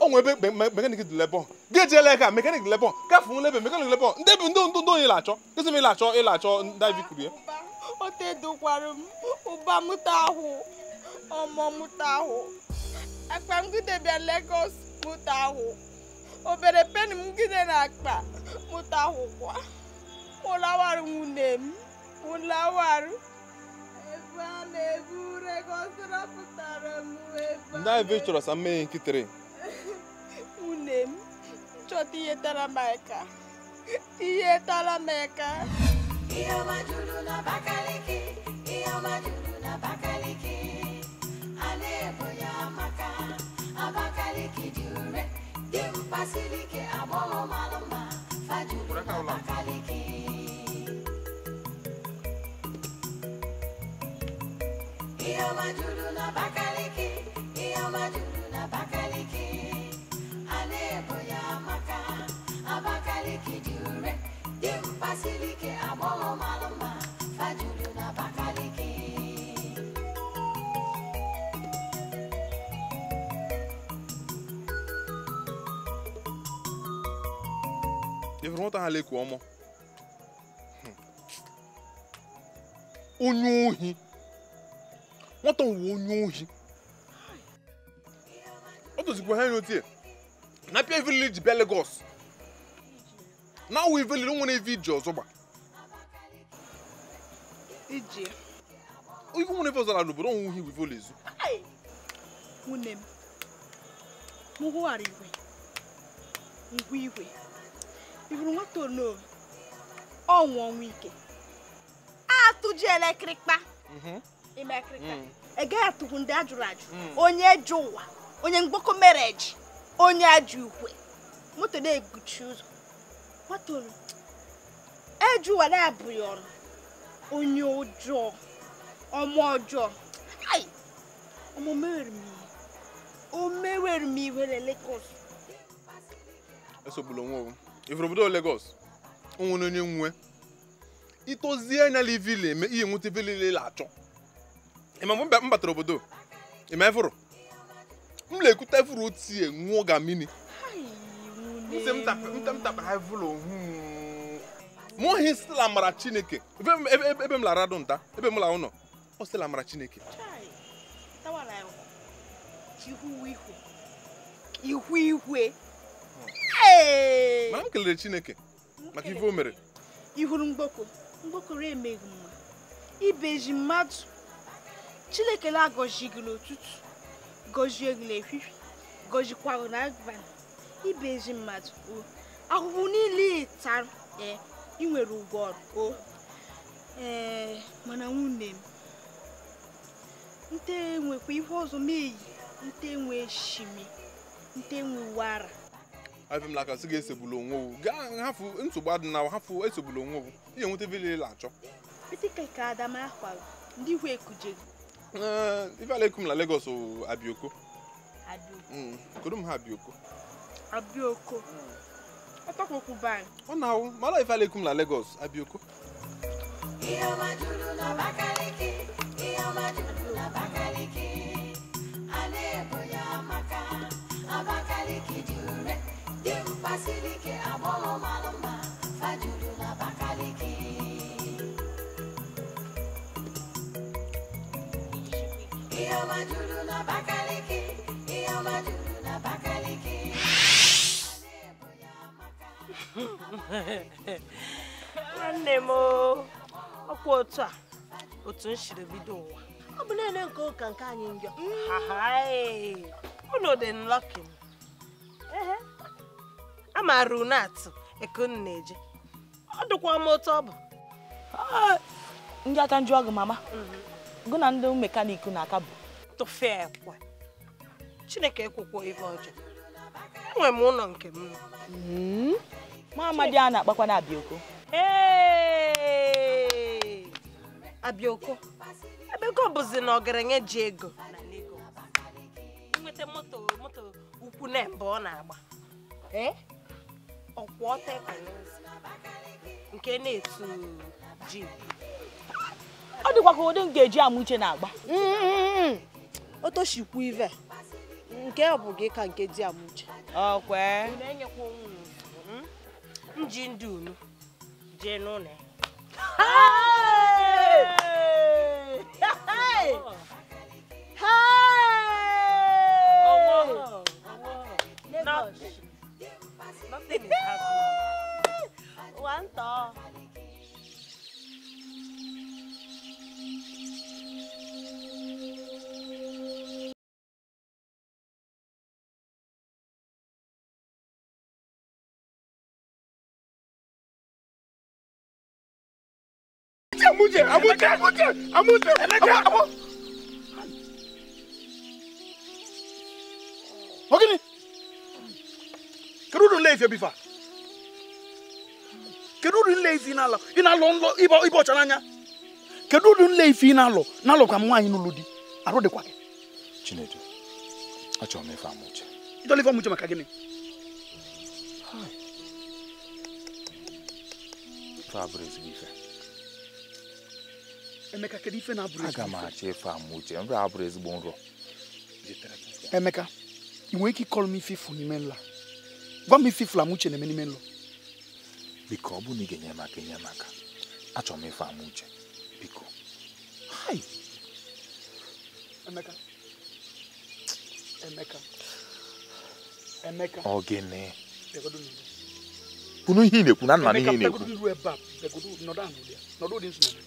onwe ebe mekanik dị lebọn gị ejiela aka mekanik dị lebọn gafe ebe mekanik lebọn ndị bụ ndị ndụ ndụ onye na-achọ ezi m achọ ị na-achọ david kurie o m ụba mụta ọmọ mụta ahụ akpa mụta obere peni m na akpa mụta ahụ kwa nwunye m chọta ihe tara m aka ihe tara m aka ihe ọma juru n'Abakaliki ihe ọma na-ebo ya maka Abakaliki dị ure dị mkpa ike agbọghọ mma ihe ọma juru n'Abakaliki ihe aka Abakaliki dịure dimkpa siri ike agbọghọ mara mma fajuru na Abakaliki ifuru nwata ha leku ọmọ hmm. onye ohi nwata nwere onye ohi ọ tozikwa ha enyotie na pia village bịa Lagos na awụ ivelili nwere iji ọzọ gba iwu nwere ọzọ na obodo onwe ihe iwivol ezu nwunne m igwe ngwa igwe ọnwụ ọnwụ ike ime ndị ajụrụ ajụ onye jụ ụwa onye mereji onye ajọ ukwe moto na-eguchi ụzọ matoro ejuwa na-abụghị ọrụ onye ọjọọ ọma ọjọọ ai omumere o mewere iwe na Lagos esogbula obodo Lagos onwere onye nwe itozie anya na ivile eme ihe nwute ivile la achọ ịma mgbe m batara obodo ịma efụrụ m na-ekute vụrụ otie nwụọ ga mini mtapara vụrụ ohu mụ hmm. hi stila mara chineke ebe m lara dụ nta ebe m lara ụlọ ọ stila mara chineke ihu ihwe. ma m kelere chineke maka ife o mere ihuru mgboko mgbokoro emeghị mma ibeji mmadụ chineke na-agọzi gị n'ụtụtụ gọzie gị n'ehihie gọzikwa na n'abalị ibe ezi mmadụ o ahụhụ niile ịtara ee ị nwere ụgwọ ọrụ o ee mana nwunye m nte nwekwa ihe ọzọ meyi nte nwe shimi nte nwe na afemlaka sị ga-esogbula onwe owu gaa hafụ nsogbu adịnawa hafụ esogbula onwe owu ihe nweta vile la achọ petike ka adama ahwara ndị ikwu ekujeghi Eh, ife alaikum na Lagos o abioko kodum ha abioko abioko ọ tọkpokwu ban ọ na-awụ mara ife alaikum na Lagos abioko ihe ọma juru n'Abakaliki ihe ọma juru n'Abakaliki a na-ebo ya maka Abakaliki juru dị mkpa siri ike nwanne m ọkwa otu a otu m siri bido ụwa ọ bụ na naanị nke ụka nke anyị njọ unu dị nlọkin a maara unu atụ ekun na-eje ọ dịkwa m otu ọ bụ ndị aka njụ ọgụ mama mhm. gụ na ndị mekaniki na-aka bụ tụfee kwa chineke ekwukwo ife ọjọọ enwere m ụlọ nke m nwa hmm? amadi a na-akpakwa na abioko abioko ebe ego bụzi na ọgaranya ji ego nweta moto moto ukwu na mba ọ na-agba eh? ọkwụ ọta nke na-etu ji ọ dịkwa ka ụdị m ga-eji uche na-agba mm-hmm. otoshikwu ive nke ọ bụ gị ka nke di amuche hmm? ji ndị unu jee n'ụlọ One amújẹ amújẹ amújẹ amújẹ amú. Ogini kedu ụdị nleezi ebifa kedu ụdị nleezi ị na-alụ ị na-alụ nlọ ịba ọcha n'anya kedu ụdị nleezi ị na-alụ na-alụkwa m nwaanyị Aro di arụ dịkwa gị Chinedu achọrọ m ife amụche ịchọrọ ife amụche maka gịnị ife abụrụ ezigbo Emeka kedu ife na-abụrụ ezigbo aga m achọ ife ama uche nrọ abụrụ ezigbo nrọ Emeka ị nwere ike ịkọrọ m ife n'ime nla gwa m ife ifu ama uche na-eme n'ime nlọ biko ọ bụ na ị ga-enye maka inye maka m achọrọ m ife ama uche biko hai Emeka Emeka Emeka ọ gịnị ihe ị na-ekwu na nna n'ihe ị na-ekwu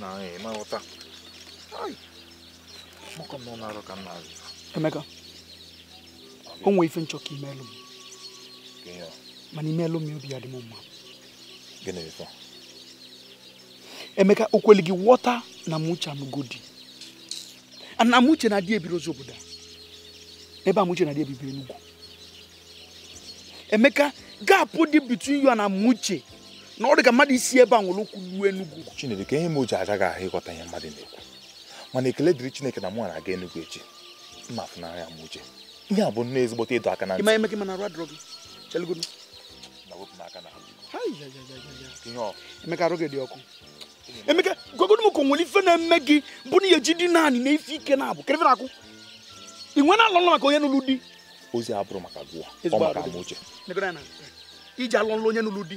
Não, ma o ta. Ai. Mo kom no na ro kan na. Emeka. O nwe ife nchọ ka imelu m. Gịnị? Mana imelu m obi adị m mma. Gịnị ife? Emeka o kweli gị ghọta na m uche m godi. Na m uche na-adị ebiri ozi Ebe a na-adị ebibiri n'ugwu. Emeka, gapụ dị between you and Amuche na ọ dị ka mmadụ isi ebe a nwere okwu ruo Enugu Chineke ka ihe m o ji ahụ ịghọta ihe mmadụ na-ekwu mana ekele dịrị Chineke na mụ na-aga Enugu echi mma afụnanya m uche ihe a bụ nnọọ ezigbote ịdọ aka na ntị ime gị mana na wepụ m aka na Emeka arụ ọkụ Emeka gogodo ka nwere ife na-eme gị bụ na ihe ji dị naanị na ife ike na-abụ kere na-akwụ ị nwere alọ maka onye n'ụlọ di ozi abụrụ maka gụwa ọ maka amụ uche iji alọ nlụ onye n'ụlọ di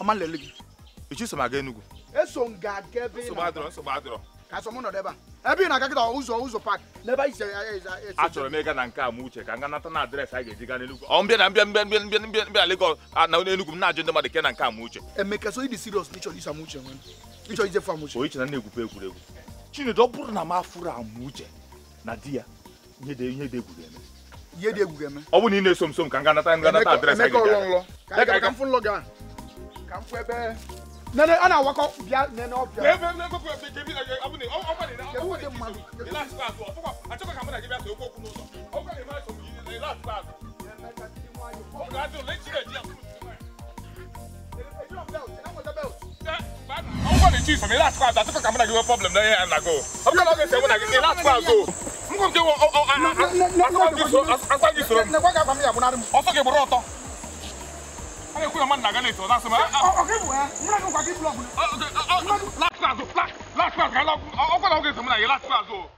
ọma nlele gị echi aga Enugu eso m ga-aga na-adọrọ ka sọ m nọdụ ebe a ebe ị na-aga kịta ụzọ ụzọ pak n'ebe ise si achọrọ m ịga na nke a m uche ka na a ga-eji gaa na mbịa mbịa mbịa mbịa mbịa mbịa na m na-ajụ ndị mmadụ ke na nke m na am uche na egwupe egwuregwu Chinedu ọ bụrụ na m afụrụ na di ya ihe dị ihe dị egwuru eme ihe dị egwuru eme ọ bụ na ị na-eso m so m ka ka mfu ebe nene ana wakɔ bia nene ɔbia. bɛɛ bɛɛ bɛɛ kɔkɔ bɛɛ jɛbi ɛɛ abu ne ɔmɔ de na ɔmɔ de kisɛ o ila sila so ɔfɔ a tɔgɔ kama na jɛbi ase o kunu sɔn o ka lema sɔn yi ila sila to le ti ka sila so a tɔgɔ kama na jɛbi problem na ye a sila so n ko n tɛ wo ɔ ɔ a a a a a a a a a 他要回来们哪个那一套？那是嘛？我我给不？我们那个快递不老不？哦对，哦买哪哪次啊？做哪哪次啊？看老我过来，我给什么哪一哪次啊？做。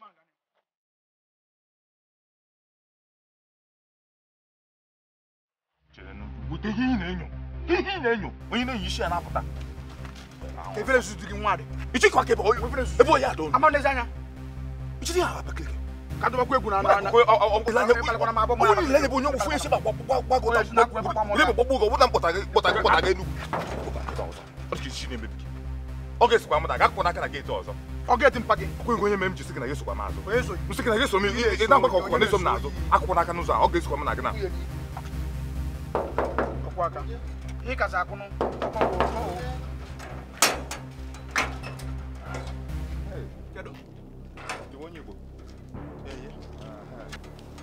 mangane bute ihe ị na-enyo ihe ị na-enyo onye na na nwa ka ọ ga ọzọ ọ ga-eti mpa gị ọkụ ego onye mere m ji sị gị na esokwa m azụ nsị gị na eso m ịda mgbakọ ọkụkọ na-eso m n'azụ akwụkwọ n'aka n'ụzọ a ọ ga-esokwa m na gị na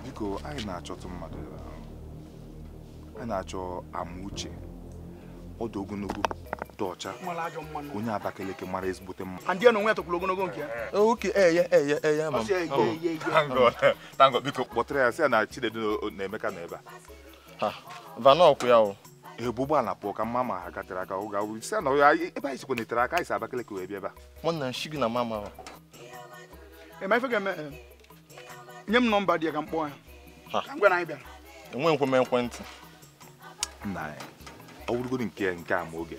biko anyị na-achọtụ mmadụ um, anyị na-achọ amauche ọdụ ogologo dị ọcha onye Abakaliki mara ezigbote mma ndị na onwe ya ogologo nke ya oke eye eye eye ma tango biko kpọtara ya sị ya na Chinedu na Emeka nọ ebe a vanọkwụ ya o ụgbọala pụọ ka mma ma ha gatere aka na ya ebe anyị sikwa aka anyị si Abakaliki wee bịa ebe a mụ na nshi gị na mama eme nye m nọmba dị ya ka m kpọọ na anyị bịara enwe nkwe m ekwentị nna ọ bụrụgodi nke nke a ma oge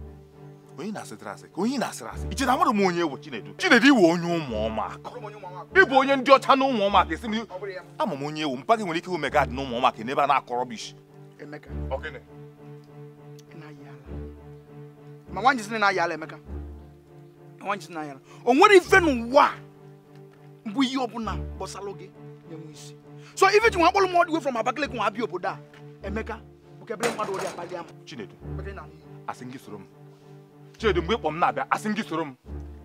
onye na-asịtara asị ka onye na asịrị asị iche na m onye bụ Chinedu Chinedu iwe onye ụmụ ọmụaka ịbụ onye ndị ọcha na ụmụ ọmụaka esi m ama m onye ewu mpa gị nwere ike ụmụ dị na ụmụ ọmụaka n'ebe a na-akọrọ bishi o nwere ife n'ụwa bụ ihe ọbụla gị na-enwe isi so ife ji nwa akpọrọ m nwa abịa obodo a Emeka bụ kebere mmadụ ama Chinedu asị Chidi mgbe ịkpọ m na-abịa asị m gị soro m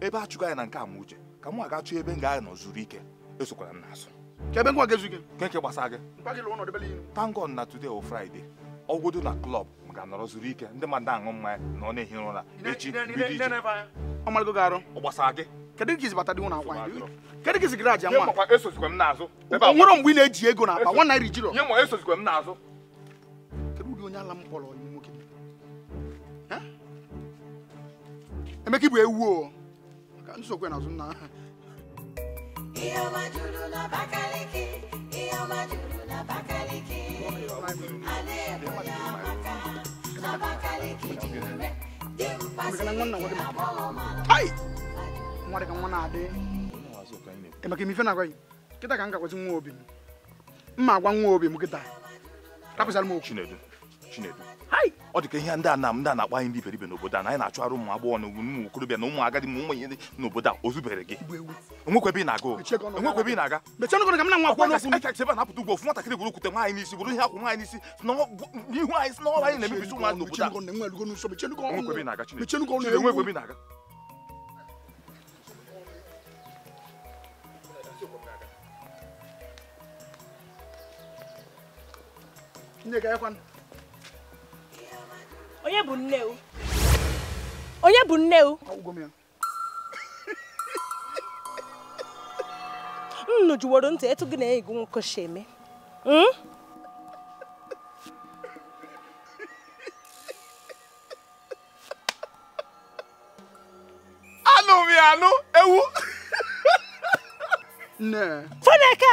ebe a chụgo anyị na nke a ma uche ka m aga chụọ ebe m ga-anọ ike esokwara m n'azụ ebe ngwa ga-ezu ike nke nke gbasara gị tangon na today o Friday ọgwụdo na klọb m ga-anọrọ zuru ike ndị mmadụ aṅụ na ọ na-ehi ụra echi ọ gị esozikwa e m n'azụ na-eji ego na akpa e nye esozikwa m n'azụ ụdị onye ala m kpọrọ nwoke Emeka bụ ewu o nsogbu na-ebu ya maka ka m gakwazi nwa obi m mma agwa nwa obi ọ dị ka ihe ndị a na ndị a na-akpa anyị ndị iberibe n'obodo a na anyị na-achụ arụ ụmụ agbọghọ na ụmụ okorobịa na ụmụ agadi ma ụmụ ihe dị n'obodo a o zubere gị ebe ị na-aga enwekwebe ị na-aga ebe a na-apụta ugbo ofu nwatakịrị bụrụ okwute nwaanyị n'isi bụrụ ihe akwụ nwaanyị n'isi ihu anyị si n'ọrụ anyị na-emebisi ụmụ anyị n'obodo a enwekwebe ị na-aga onye bụ nne o onye bụ nne o nnu jụworo ntị etu gị na enyi gị nwoke si eme hmm? anụ m ya anụ ewu Nne. Fọneka!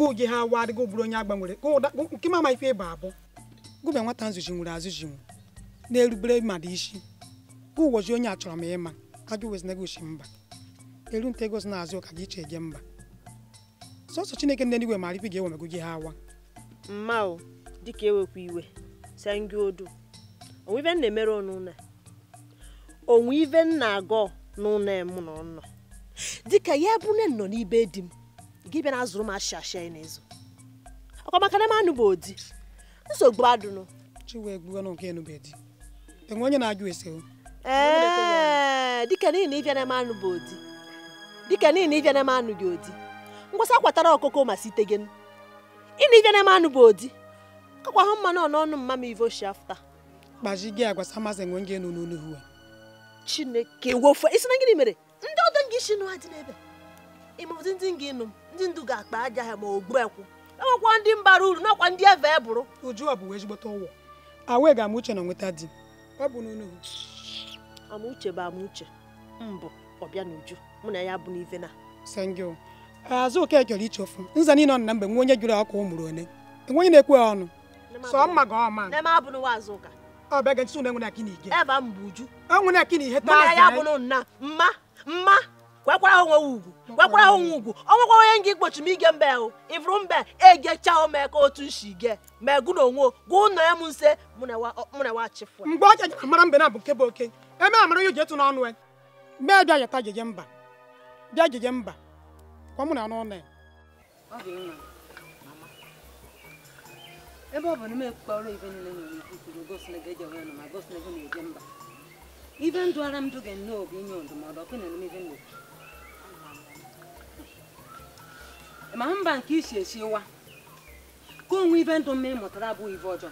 gụgị ha awa adịgo bụrụ onye agbanwere nke mama ife ịba abụ gụbe nwata nzuchi nwere azụchi nwu na-erubere mmadụ isi gụwoji onye achọrọ m ịma ajụweznagochi mba eru nta ego egosi na azụ ụka gị iche gị mba sọsọ chineke ndị eluigwe mara ife ga-ewe gị ha awa mma o dịka ewekwa iwe sengị odu onwe ife na-emere ọnụụlọ onwe ife na-agọ n'ụlọ na nọ dịka ya bụ nne nọ n'ibe di m gị bịa na azụrụ m ashị ashị anyị n'ezo ọkwa maka na manụ bụ odi nsogbu adụnụ chiwe onye na-ajụ ese o ee dịka niile ịbịa na manụ bụ odi dịka niile ịbịa na manụ gị odi ngwasa kwatara ọkụkọ ma site gị ị na ịbịa na manụ bụ odi kakwa hụ mmanụ ọnụọnụ mma m ivo shi afta kpaji gị agwasa masị enwe nge nụ n'onu hua chineke wofe isi na gịnị mere ndị ọdọ gị shi nụ ha dị n'ebe ịmụzi ndị gị nụ ndị ndu ga-akpa aja ha ma ogbuekwu enwekwa ndị mbara uru nakwa ndị eve e bụrụ uju ọ bụ ezigbote ụwọ awee ga amuche na nweta di ọ bụ n'ụlọ amuche bụ amuche mbụ ọbịa na uju mụ na ya bụ n'ive na sengil azụ oke chọrọ iche ofu nza niile ọ na mgbe nwe onye jụrụ ọkụ ụmụrụ ole enweghị na-ekwe ọnụ sọ mma ga ọma n'eme abụ n'ụwa azụ ụka ọ bịa ga ntụnụ enwe na akị na ige ebe a mbụ uju enwe na akị na ihe taa ya bụ nna mma mma gbakwara ha onwe ugwu gbakwara ha onwe ugwu ọ nwekwara onye nga igbochi m ige mbe ahụ ịfụrụ mbe egechaa ome ka otu nshi ge ma gụ na onwe gụ nọ ya m nse mụ na wachịfụ mgbe ọ jajara mara mbe na bụ nke bụ oke eme amara ya ji etu n'ọnụ ya e. mee bịa yata jeje mba bịa jeje mba kwa mụ na anụ ọnụ ya e. ebe ọ bụ na m ekpọrọ ibe niile nyere ikwu kwuru gosi na ga-eji onwe nọ ma gosi na ego na-eje mba ibe ndụ ara m dụ ga nnọọ bụ inye ndụmọdụ ọkụ na emume ibe nna ma mba nke isi esi esiwa ka onwe ibe ndụ mma ịmụtara abụghị ibe ọjọọ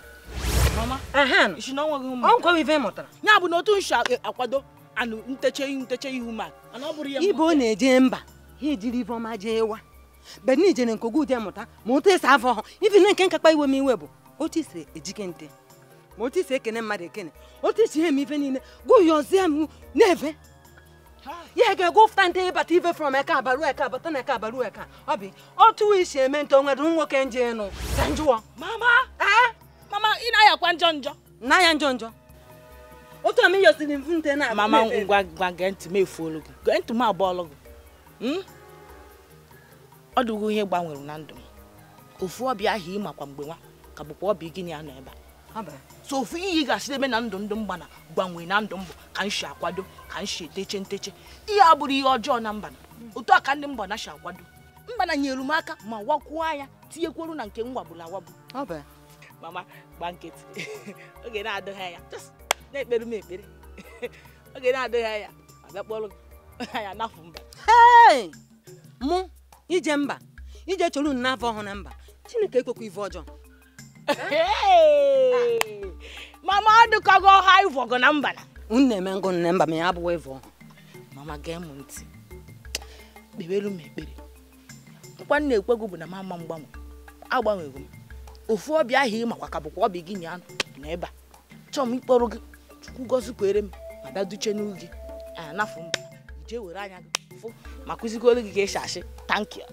ọgwọ ibe mụtara ya bụ na otu nshi e, akwado anụ nteche ihu nteche ihu ma ibe ọ na-eje mba ha ejiri ibe ọma jee wa beni jere nke ogu ụdị mụta ma otu esi afọ ọhụ ibi na nke nkakpa iwe m iwe bụ otu isi ejike nte ma otu isi ekene mmadụ ekene otu isi ihe m ife niile gụyọzie m na-efe ya ga-egwu ụfụta nte ịbata ibe from eke abaru eke abata na eke abaru eke ọ bụ otu isi eme nte onwere nwoke nje ịnụ njụọ mama mama ị na-ayakwa njọ njọ na njọ njọ otu ami yosiri mfu nte na mama ngwa ngwa gee ntị m efuolu gị gee ntị m abụọlụ gị hmm? ọ dịgo ihe gbanwere na ndụ m ofu ọbịa ahụ ịmakwa mgbe nwa ka bụkwa ọbịa gị ya nọ ebe a so ofu ihe ị ga-asị eme na ndụ ndụ mgbana gbanwee na ndụ mbụ ka m akwado ka m si eteche nteche ihe a ihe ọjọọ na mbana otu a ka ndị na si akwado mbana nyere m aka ma wakwuo anya tinyekwuru na nke mwagburu awabụ mama gba nkịtị oge na-adịghị anya m mụ ije mba ije chọrọ ọhụrụ na mba chineke ekwekwa ife ọjọọ mama ọ dịkago ọha ịvọgo na mbana na eme ngụ nne mba ma ya abụwa ịvọ mama gee m ntị kpebelu m ekpere nkwa nna ekwego bụ na mama mgbanwe agbanwego m ofu ọbịa ahụ ịmakwa ka bụkwa ọbịa gị nya na ebe a chọọ m ịkpọrọ gị chukwu gozi kwere m ma daduche n'u gị anafụ m jee were anya gị fụ ma kụzigoro gị ka esi ashị tankị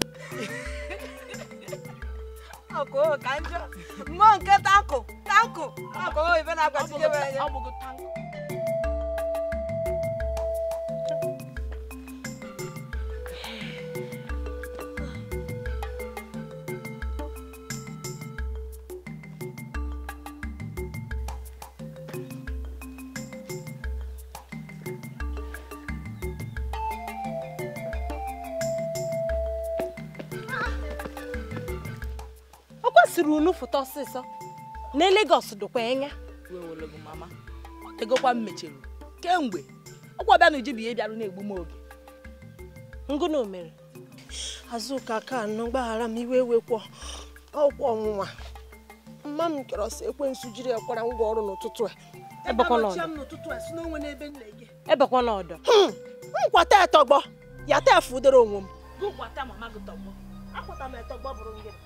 ọkụ ka njọ mmụọ nke tankụ tankụ ọkụ ibe na-agbazinye ya siri unu fụta ọsịsọ na Lagos dịkwa anya mama egokwa m mechiri kemgbe ọkwa bịa na uji bụ ihe bịarụ na-egbu m oge ngụnụ mere azụka ka anọ gbaghara m iwe ewekwọ ọkwa ọnwụnwa mma m kere ọsọ ekwensu jiri ekwara ngwa ọrụ n'ụtụtụ a ebekwa n'ọdọ hmm, nkwata etọgbọ ya ta fudoro onwe m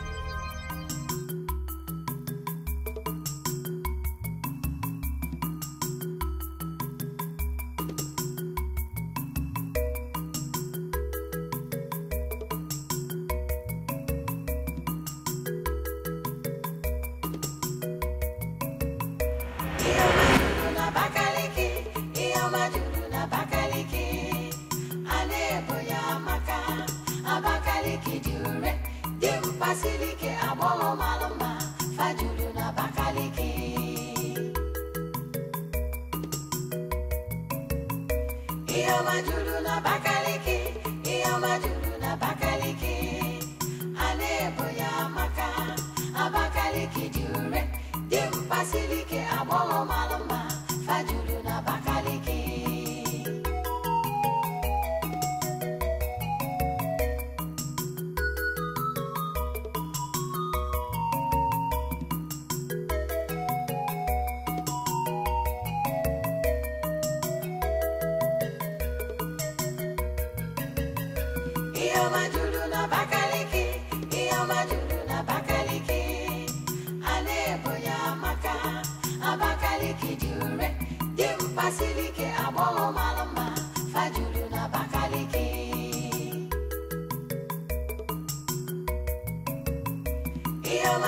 Yeah.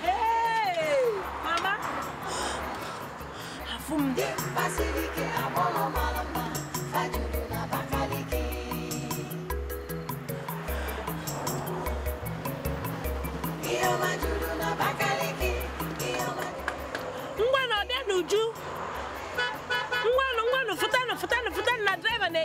Hey, mama. Afum. Basilike abolo malama fajuru na bakalike. Iyo majuru na na driver na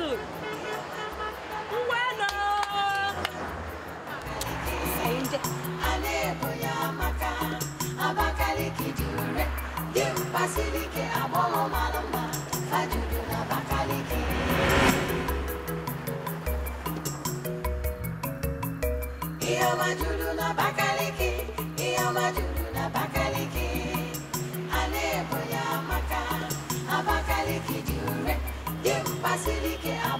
soup. Bueno! Basilique à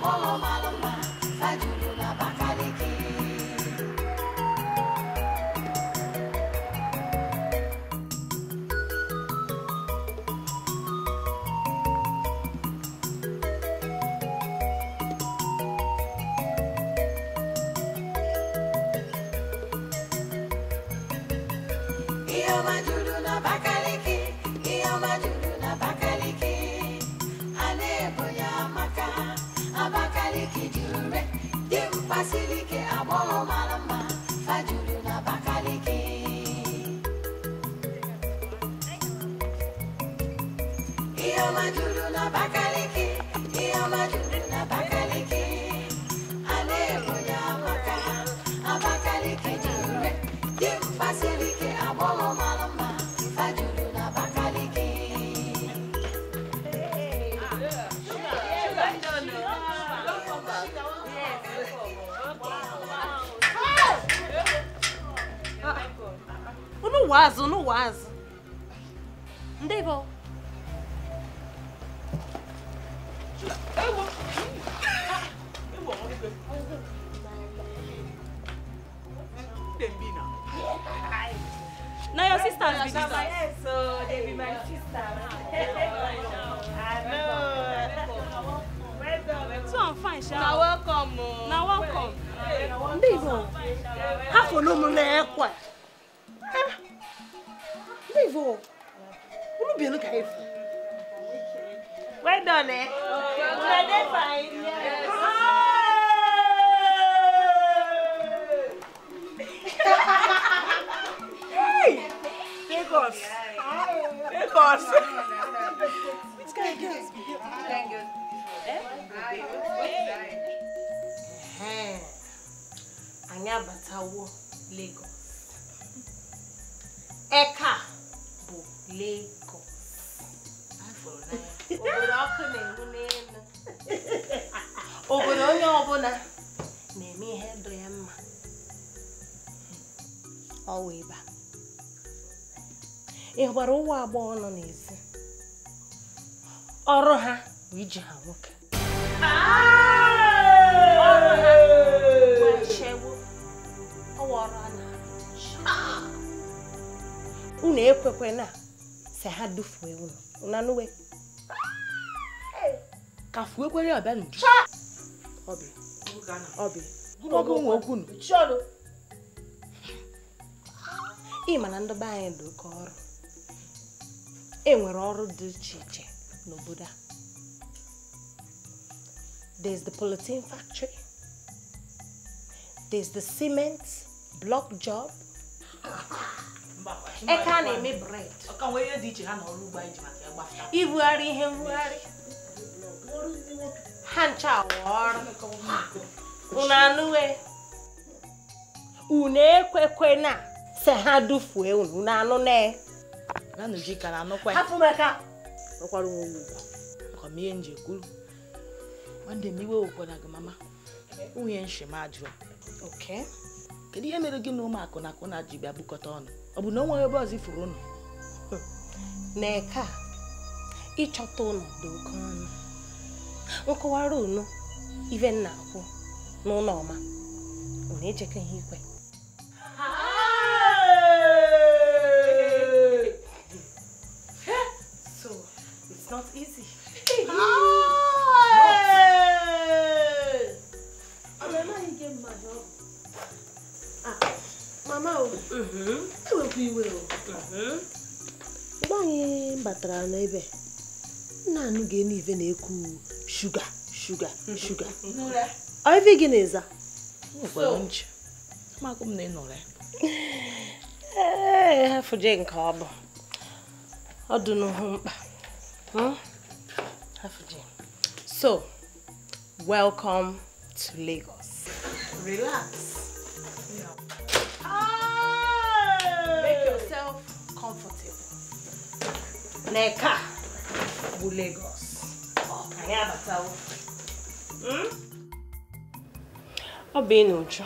agbọghọ nọ n'ezi ọrụ ha bụ iji ha nwoke ọrụ ha chegbu ọwa ọrụ a na unu ekwekwe na si ha dufue unu nanụwe ka fuekwere ọbịa n'uju ọbị nwe okwu ị ma na ndị be anyị dị oke ọrụ e nwere ọrụ dị iche iche n'obodo a there's the polythene factory there's the cement block job eke a na-eme bred ibugharị ihe mbugharị ha ncha ọrụ unu anụwe unu ekwekwe na se ha dufuo unu anụ na na Nujika na anụkwa ya ọkwara onwe ugwu maka m ihe nje kwuru nwanne m iwe wekwara gị mama nwunye nshimajụ kedu ihe mere gị na ụmụakụ na akụ na ji bịa bukọta ọnụ ọ bụ na o ebe ọzọ ifuru ụnụ na-eke a ịchọta ụnụ dị oke ọnụ nkọwara unu ive na akwụ n'ụlọ ọma unu echeka ihe ikwe mgbe anyị batara n'ebe nna anụ ga na-ekwu shuga shuga shuga ife gị na-eza ee nke ọ bụ ọ dị mkpa hmm? so welcome to Lagos relax na eke a bụ Lagos anyị abatawo hm? ọ bụ ị na ụjọ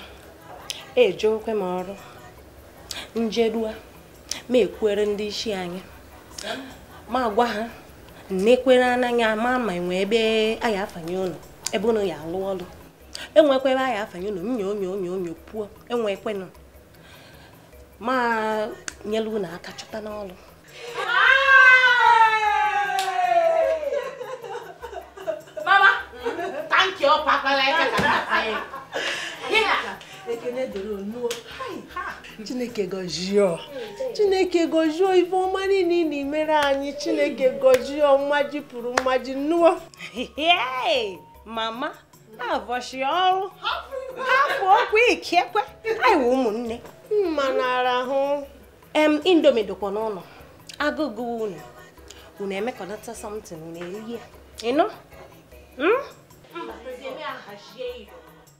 eje okwe m ọrụ njedua ma ekwere ndị isi anyị ma gwa ha nnekwere anaghị ama ma enwe ebe a ya afanye ụlọ ebe ụlọ ya alụ ọrụ enwekwa ebe ya afanye ụlọ nyo onyo onyo onyo pụọ enwekwenụ ma nyelu na- aka chọta n'ọrụ thank you ọpakwala aka ka nkata ya chineke gọzie chineke gọzie ife ọma niile na emere anyị chineke gọzie mmaji pụrụ mmaji nnụọ mama na-avọchi ọrụ hapụ okwu ikekwe aiwe ụmụnne mma na-arahụ em indomi dịkwa n'ụlọ agụgụ unu unu emekọnata samtin unu erihe ịnụ hmm? Mas se me arrajei.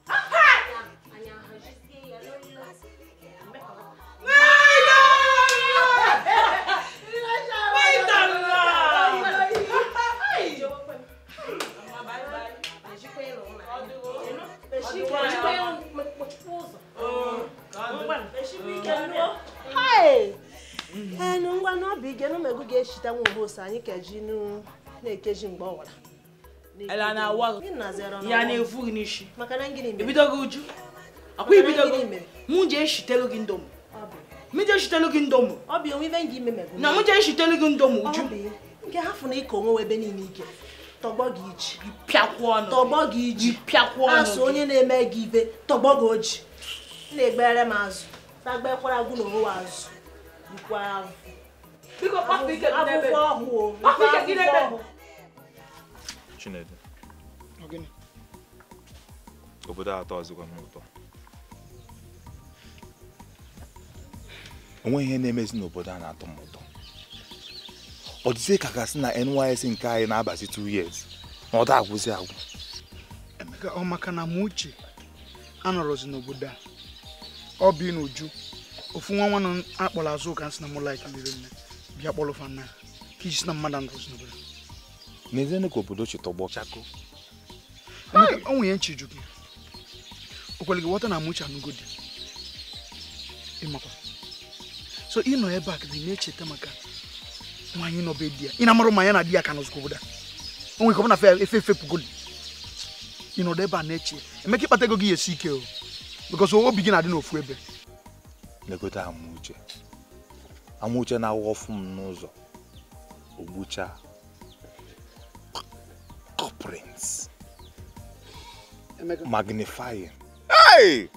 Ah! Ai, arrajei, olha. ee na ngwa n'obi ige na omegbu ga-echita nwa obosi anyị keji na-ekeji mgbe ọwara ele na-awa ya na n'isi ibido uju akwa ibidogo gị mụ je eshitelu gị ndomu mụ je eshitelu gị ndomu na mụ je eshitelu gị ndomu uju nke ha na ịka onwe ebe niile ike tọgbọ gị iji pịakwụ ọnụ tọgbọ gị iji pịakwụ asụ onye na-eme gị ibe tọgbọ gị oji na-egbere m azụ na-agbakwara agwụ na onwe azụ bikwa ahụ akwụkwọ ọhụụ Chinedu obodo atọ ọzọkwa n'ụtọ. ụtọ onweghị ihe na-emezi n'obodo a na-atọ m ụtọ ọ dịzie ka gasị e na NYSC nke anyị na-abazi 2 years na ọ da agwụzi agwụ emeka ọ maka na m uche anọrọzi n'obodo a ọ bi n'uju ofu nwa nwa nọ akpọrọ azụ ụka nsị na m laik bịa kpọrọ fanna ka iji sị na mmadụ anọrọzi n'obodo n'ezienụ ka obodo chi tọgbọ onwe ya nchiju gị okwere gị ghọta na mụcha anụgodi ịmakwa so ịnọ nọ ebe a ka na-echeta maka nwaanyị nọ be di ya ị na-amarụ ma ya na di ya ka nọzụkwa obodo a onwe ka ọ na efe efe pugodi ị ebe a na-eche emeka ịkpata ego gị ya esi ike o because obi gị na-adị n'ofu ebe legote amauche amauche na-awụ ọfụ m n'ụzọ ogbuchaa magnifying. Hey!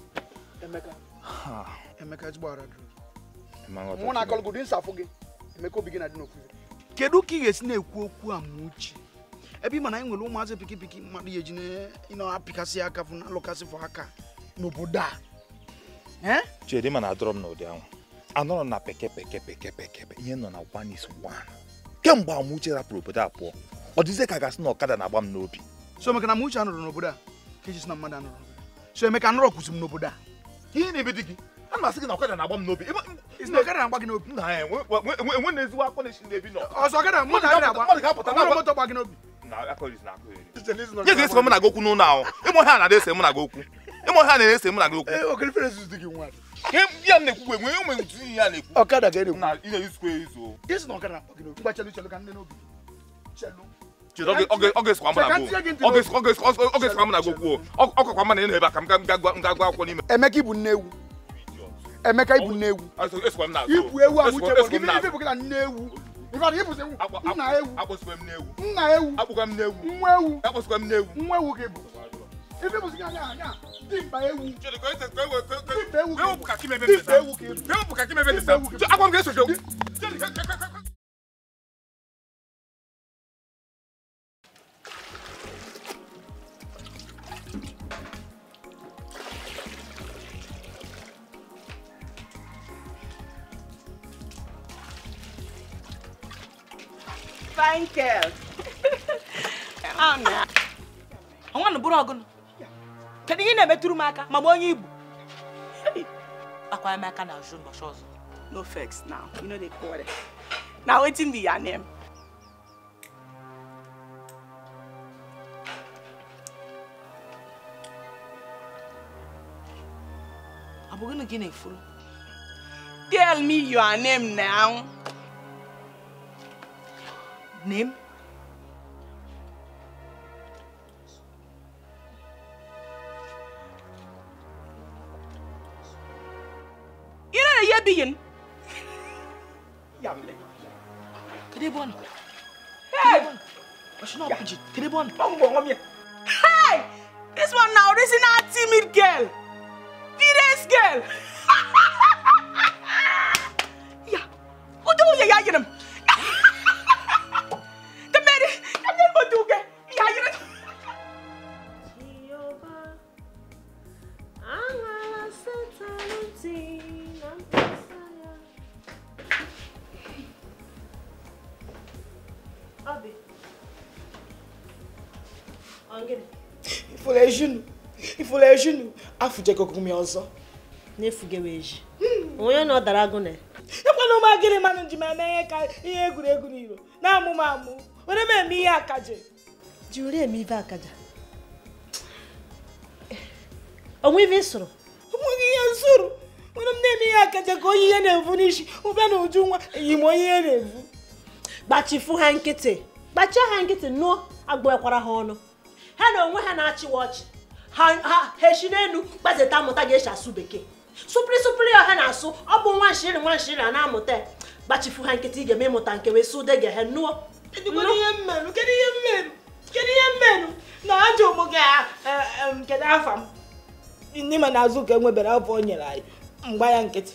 Emeka. Emeka gị, Emeka obi gị na Kedu ka ị ga-esi na-ekwu okwu a ma mana Ebe ị ma na anyị nwere ụmụazị pikipiki mmadụ ya na aka aka n'obodo a. na na peke peke peke ihe nọ na one is one. Kemgbe Amuche rapụrụ obodo a pụọ, ọ ka na ọkada na So n'obodo a? ka ejisi na mmadụ anụrụ so ka anụrụ kwụsị m n'obodo a ihe na-ebe di gị a m gị na ọkada na-agba m n'obi ọkada na-agba gị n'obi na ezigbo na-esi nọ ọzọ ọkada mmadụ na moto gba gị esi na gị okwu n'ụlọ ahụ ịmụ na na okwu ịmụ na na okwu ya eh, m na-ekwu enwe ntu ihe na-ekwu ọkada ga na ihe izu na ọkada na-akpọ ka nne n'obi Emeka ibu nne ewu Emeka ibu nne ewu ibu ewu awụchebụ gị na nne ewu nna ewu nna ewu nwa ewu nwa ewu gị bụ ife bụ dimba ewu dimba ewu gị bụ Michael. Nwa na bụrụ ọgụnụ. Kedu ihe na-emetụrụ m aka ma m onye Igbo? Akwara m aka na azụ ụbọchị ọzọ. No vex now, you no dey quarrel. Na wetin be your name? Abugunu bụ gịnị gị na-efuru? Tell me your name now. name? ina ne ye biyin yamle kede hey washina opiji kede bon bongo ngomye hey this one now this is not timid girl fierce girl yeah you, ye ya yinim na-efujego gụmị ọzọ na-efugewa eji onye na ọ dara agụnị ịkwana ụmụ agịrị mmanụ ji ma na ka ihe egwuregwu n'iro na amụmụ m amụ were m eme ihe akaje ji were eme ibe akaja onwe ibe ịsụrụ onweghị ihe nsụrụ were m na-eme ihe akaja ka onye ihe na-evu n'isi ụbịa na uju nwa eyi m onye ihe na-evu gbachifu ha nkịtị gbachie ha nkịtị nụọ agbụekwara ha ọnụ ha na onwe ha na-achịwa ọchị ha hechiri elu gbazeta amụta ga-esi asụ bekee sụpịrị sụpịrị ọha na-asụ ọ bụ nwa nshiri nwa nshiri a na-amụta gbachifu ha nkịtị ga-eme ịmụta nke wee sụ dege he nụọ kedu ihe mmenụ na ajọ ụmụ gị e, e, kedu afa m ndị ma na azụ ka e nwebere afọ o nyere anyị mgba ya nkịtị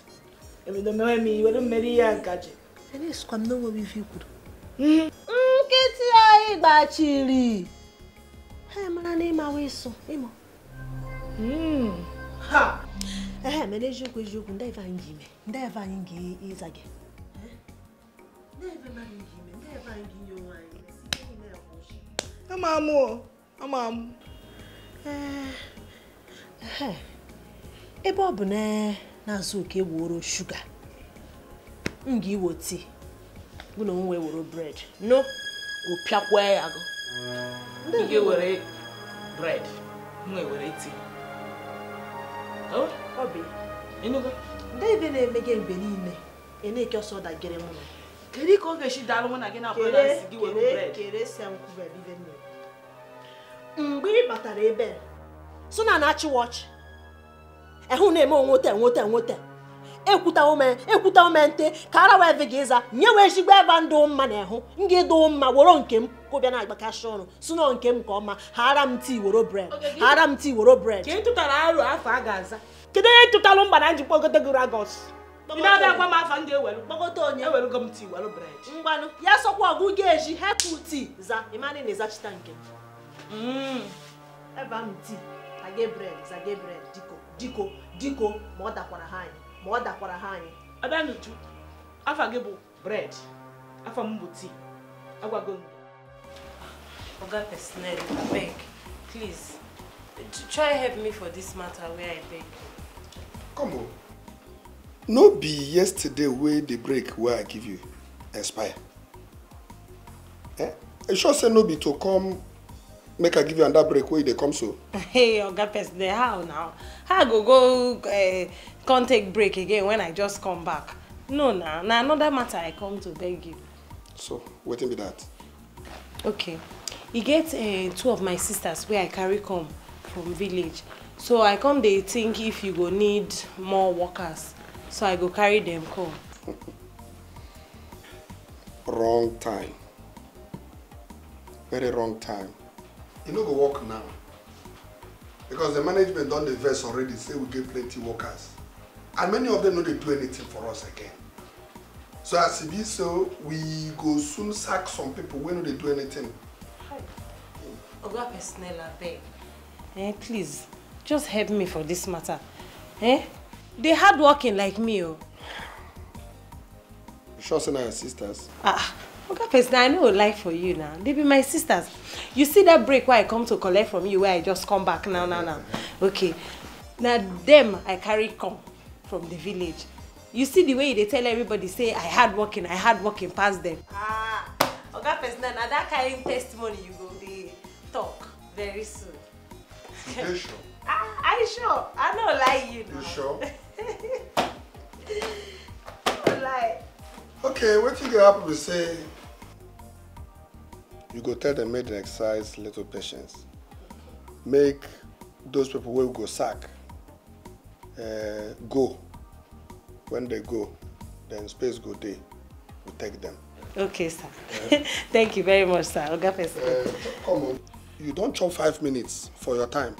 ebido mewe m iwere mmeri ya nkaji nkịtị anyị gbachiri ha mara na ịmawa ịsụ ịmụ Hmm. Ha! ee mere eziokwu eziokwu ndị ife anyị ji ime ndị ife anyị ga ịza gị ama m ama m ebe ọ bụ na-azụ oke ewuro shuga m ga iwo tii bụ na nwe were bred no opiakwa ya gụ ndị ga-ewere bred nwe were tii ndị na eme gị mgbe niile ị na-eke ọsọ dagịrị mụ kedu ka ọ ga-esi daalụ mụ na gị na mgbe ị batara ebe so na na-achị wọchị ehụ na-eme onwete enwete enwete ekwuta ome ekwuta ome nte ka ara wee vi gị ịza nye wee ezigbo ebe ndụ mma na ehụ m ga ịdụ mma woro nke m ọkụ bịa na-agbakacha ọnụ si nke m nke ọma ghara m ti woro bred ghara m tii woro bred kedu onye tụtalụ mba na njikwa ogote gị ragos ya sọkwa ọgụ ga hepụ tii za ịmanị na ịzachita nke mm. ebe m diko diko diko ma ọ dakwara ha anyị ma ọ dakwara ha anyị abịa n'uju afọ gị bụ bred afọ m bụ ti agwago m oga personnel beg, please try help me for this matter Where i beg come on no be yesterday where the break where i give you expire eh I sure say no be to come make i give you another break where they come so hey oga personnel how now how i go go eh, can't take break again when i just come back no na na another matter i come to beg you so wetin be that. okay e get uh, two of my sisters wey i carry come from village so i come dey think if you go need more workers so i go carry them come. wrong time very wrong time e no go work now because the management don dey vex already say we get plenty workers and many of them no dey do anything for us again so as e be so we go soon sack some people wey no dey do anything Oga Pesnella, beg. Eh, please, just help me for this matter. Eh? They hard working like me, oh. You sure say your sisters? Ah, ah. Oga Pesnella, I no life for you now. They be my sisters. You see that break where I come to collect from you, where I just come back now, now, now. Okay. now them I carry come from the village. You see the way they tell everybody say I hard working, I hard working past them. Ah, Oga Pesnella, now that kind testimony you go talk very soon. You sure? I, I ah, sure. I no lie you now. You sure? no lie. Okay, what you go happen to say? You go tell the maiden exercise little patience. Make those people will go sack uh, go. When they go, then space go day. We take them. Okay, sir. Yeah. Thank you very much, sir. Oga Uh, come on. you don chop five minutes for your time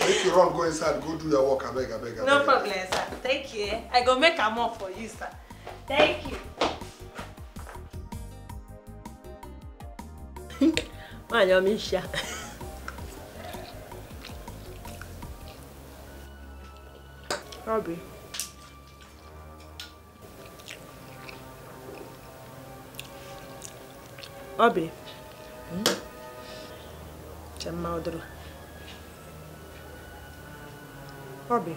make you run go inside go do your work I abeg abeg abeg. no problem sir thank you eh? i go make am up for you sir thank you. My ọma isi a ọbị ọbị njem maodoro ọ bụ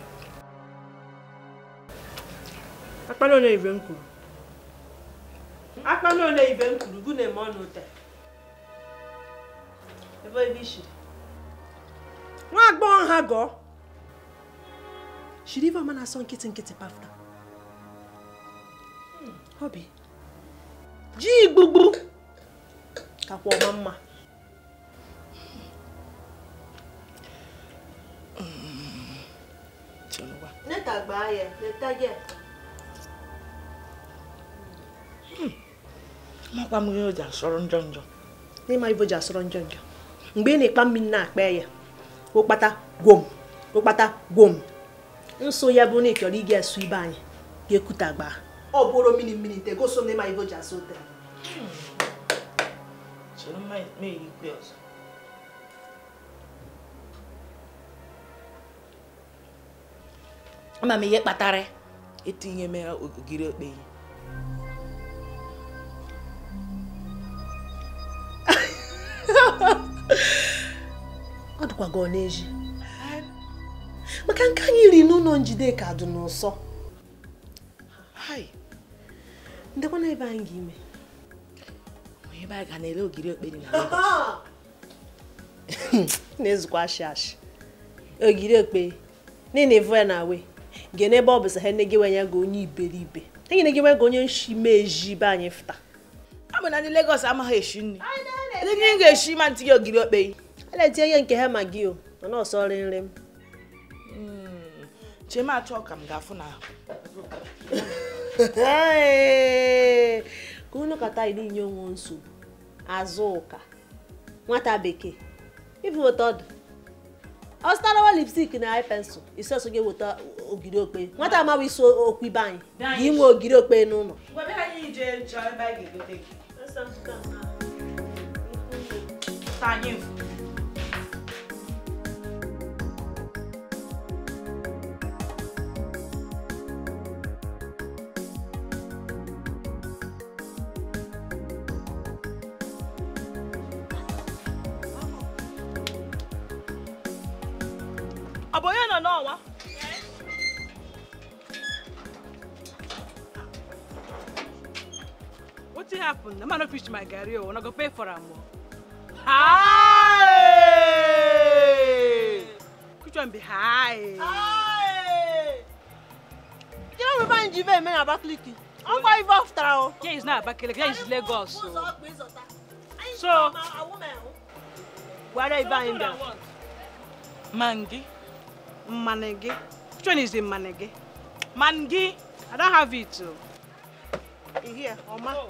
akpala ole ibe m kwuru akpala ole ibe m kwuru gụ na-eme ebe ebe ishiri nwa agbọghọ ha gọọ shiri ife ọma na-asọ nkịtị nkịtị pafta ọ hmm. bụ ji igbugbu kakwa ọma mma Hmm. mgbe ị na-ekpa mmiri na-akpa ya ụkpata gwom ụkpata gwom nso ya bụ na ị chọrọ ịga asụ ibe anyị ga-ekuta gbaa ọ bụrụ mmiri mmiri nte ama m ihe kpatara etinye m ya ogiri okpeyi ọ dịkwa gị n'eji maka nke anyị riri n'ụlọ Njideka dị n'ụsọ ndekwana ebe anyị ga-ime ebe anyị ga na-ele ogiri okperi na na-ezukwa ashị ashị ogiri okpe na-enevu ya na wee gị n'ebe ọ bụ sa ha enegịwa ya gị onye iberibe enyenegịwa gị onye nshimezi be anyị fụta abụ na ndị Lagos amaghị eshi nri ndị nri ga-eshi ma ntị gị ogiri okpei a na-etinye ihe nke ha ma gị o mana ọsọ nri nri m chema achọ ka m ga-afụ na ka unu kata iri inye onwe nsogbu azụ ụka nwata bekee ibu otu ọdụ ọ zụtarawa lipstik na ai pensụl isi ọsọ ga-eweta ogiri okpe nwata amaghị isi okwu ibe anyị ga inwe ogiri okpe n'ụlọ anyị the man no preach my garri o una go pay for am o. Hi! Which one be hi? Hi! You know we buy in Jive men Abakaliki. I'm going to after o. Yeah, it's not Abakaliki, yeah, it's Lagos. So. so oh. where are you buying them? Mangi. Manegi. Which one is the Manegi? Mangi. I don't have it. You hear, Oma? Oh.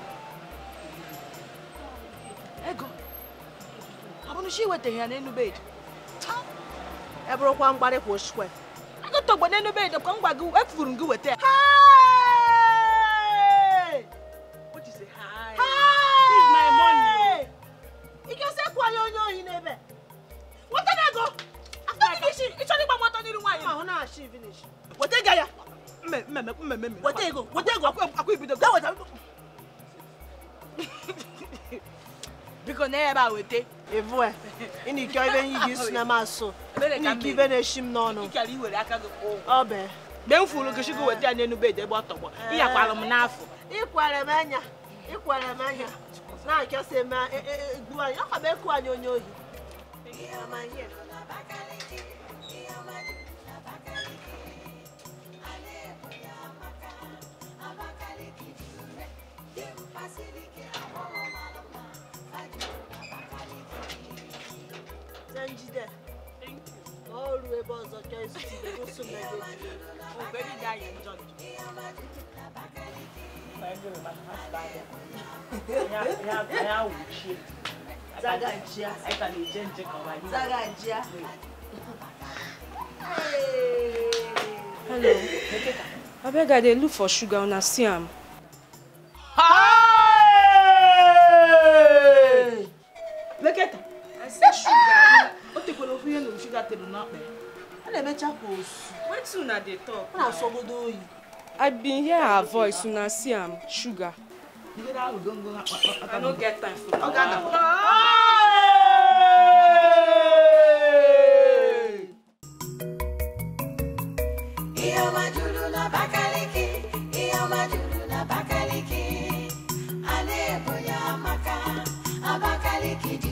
ego ọ bụrụ si iwetaghị ya n'elu bed e bụrụkwa mgbarị kwa osikwe agụtọgbe n'elu bed ka m gwa gị efuru m gị weta ya ebe a weta evu e. a ị na-eke ibe nye gị isi na masụ eh. ike ibe na-eshi m n'ọnụ ọ bee mgbe m fụrụ gị chukwu weta ya n'enu bedi ebe ọ tọgbọ ịyakwara m n'afọ ịkwara m anya ịkwara m anya na-achọsị m gbuo e, e, anyị ọ ka m ekwu anyị onye ohi ọ̀dọ̀ èsì tí ó sùn lẹ́gbẹ̀ẹ́ ọ̀gbẹ́ni ní ààyè ìjọ mi. Zagajiya. Zagajiya. Hello. Abeg I look for sugar una see am. Leketa. I said sugar. O the kolo fi yen lo sugar te do na pe when emecha go su wetin una dey talk una sogodo oyi. i bin hear her voice una see am sugar. i no get time for that. Abakaliki di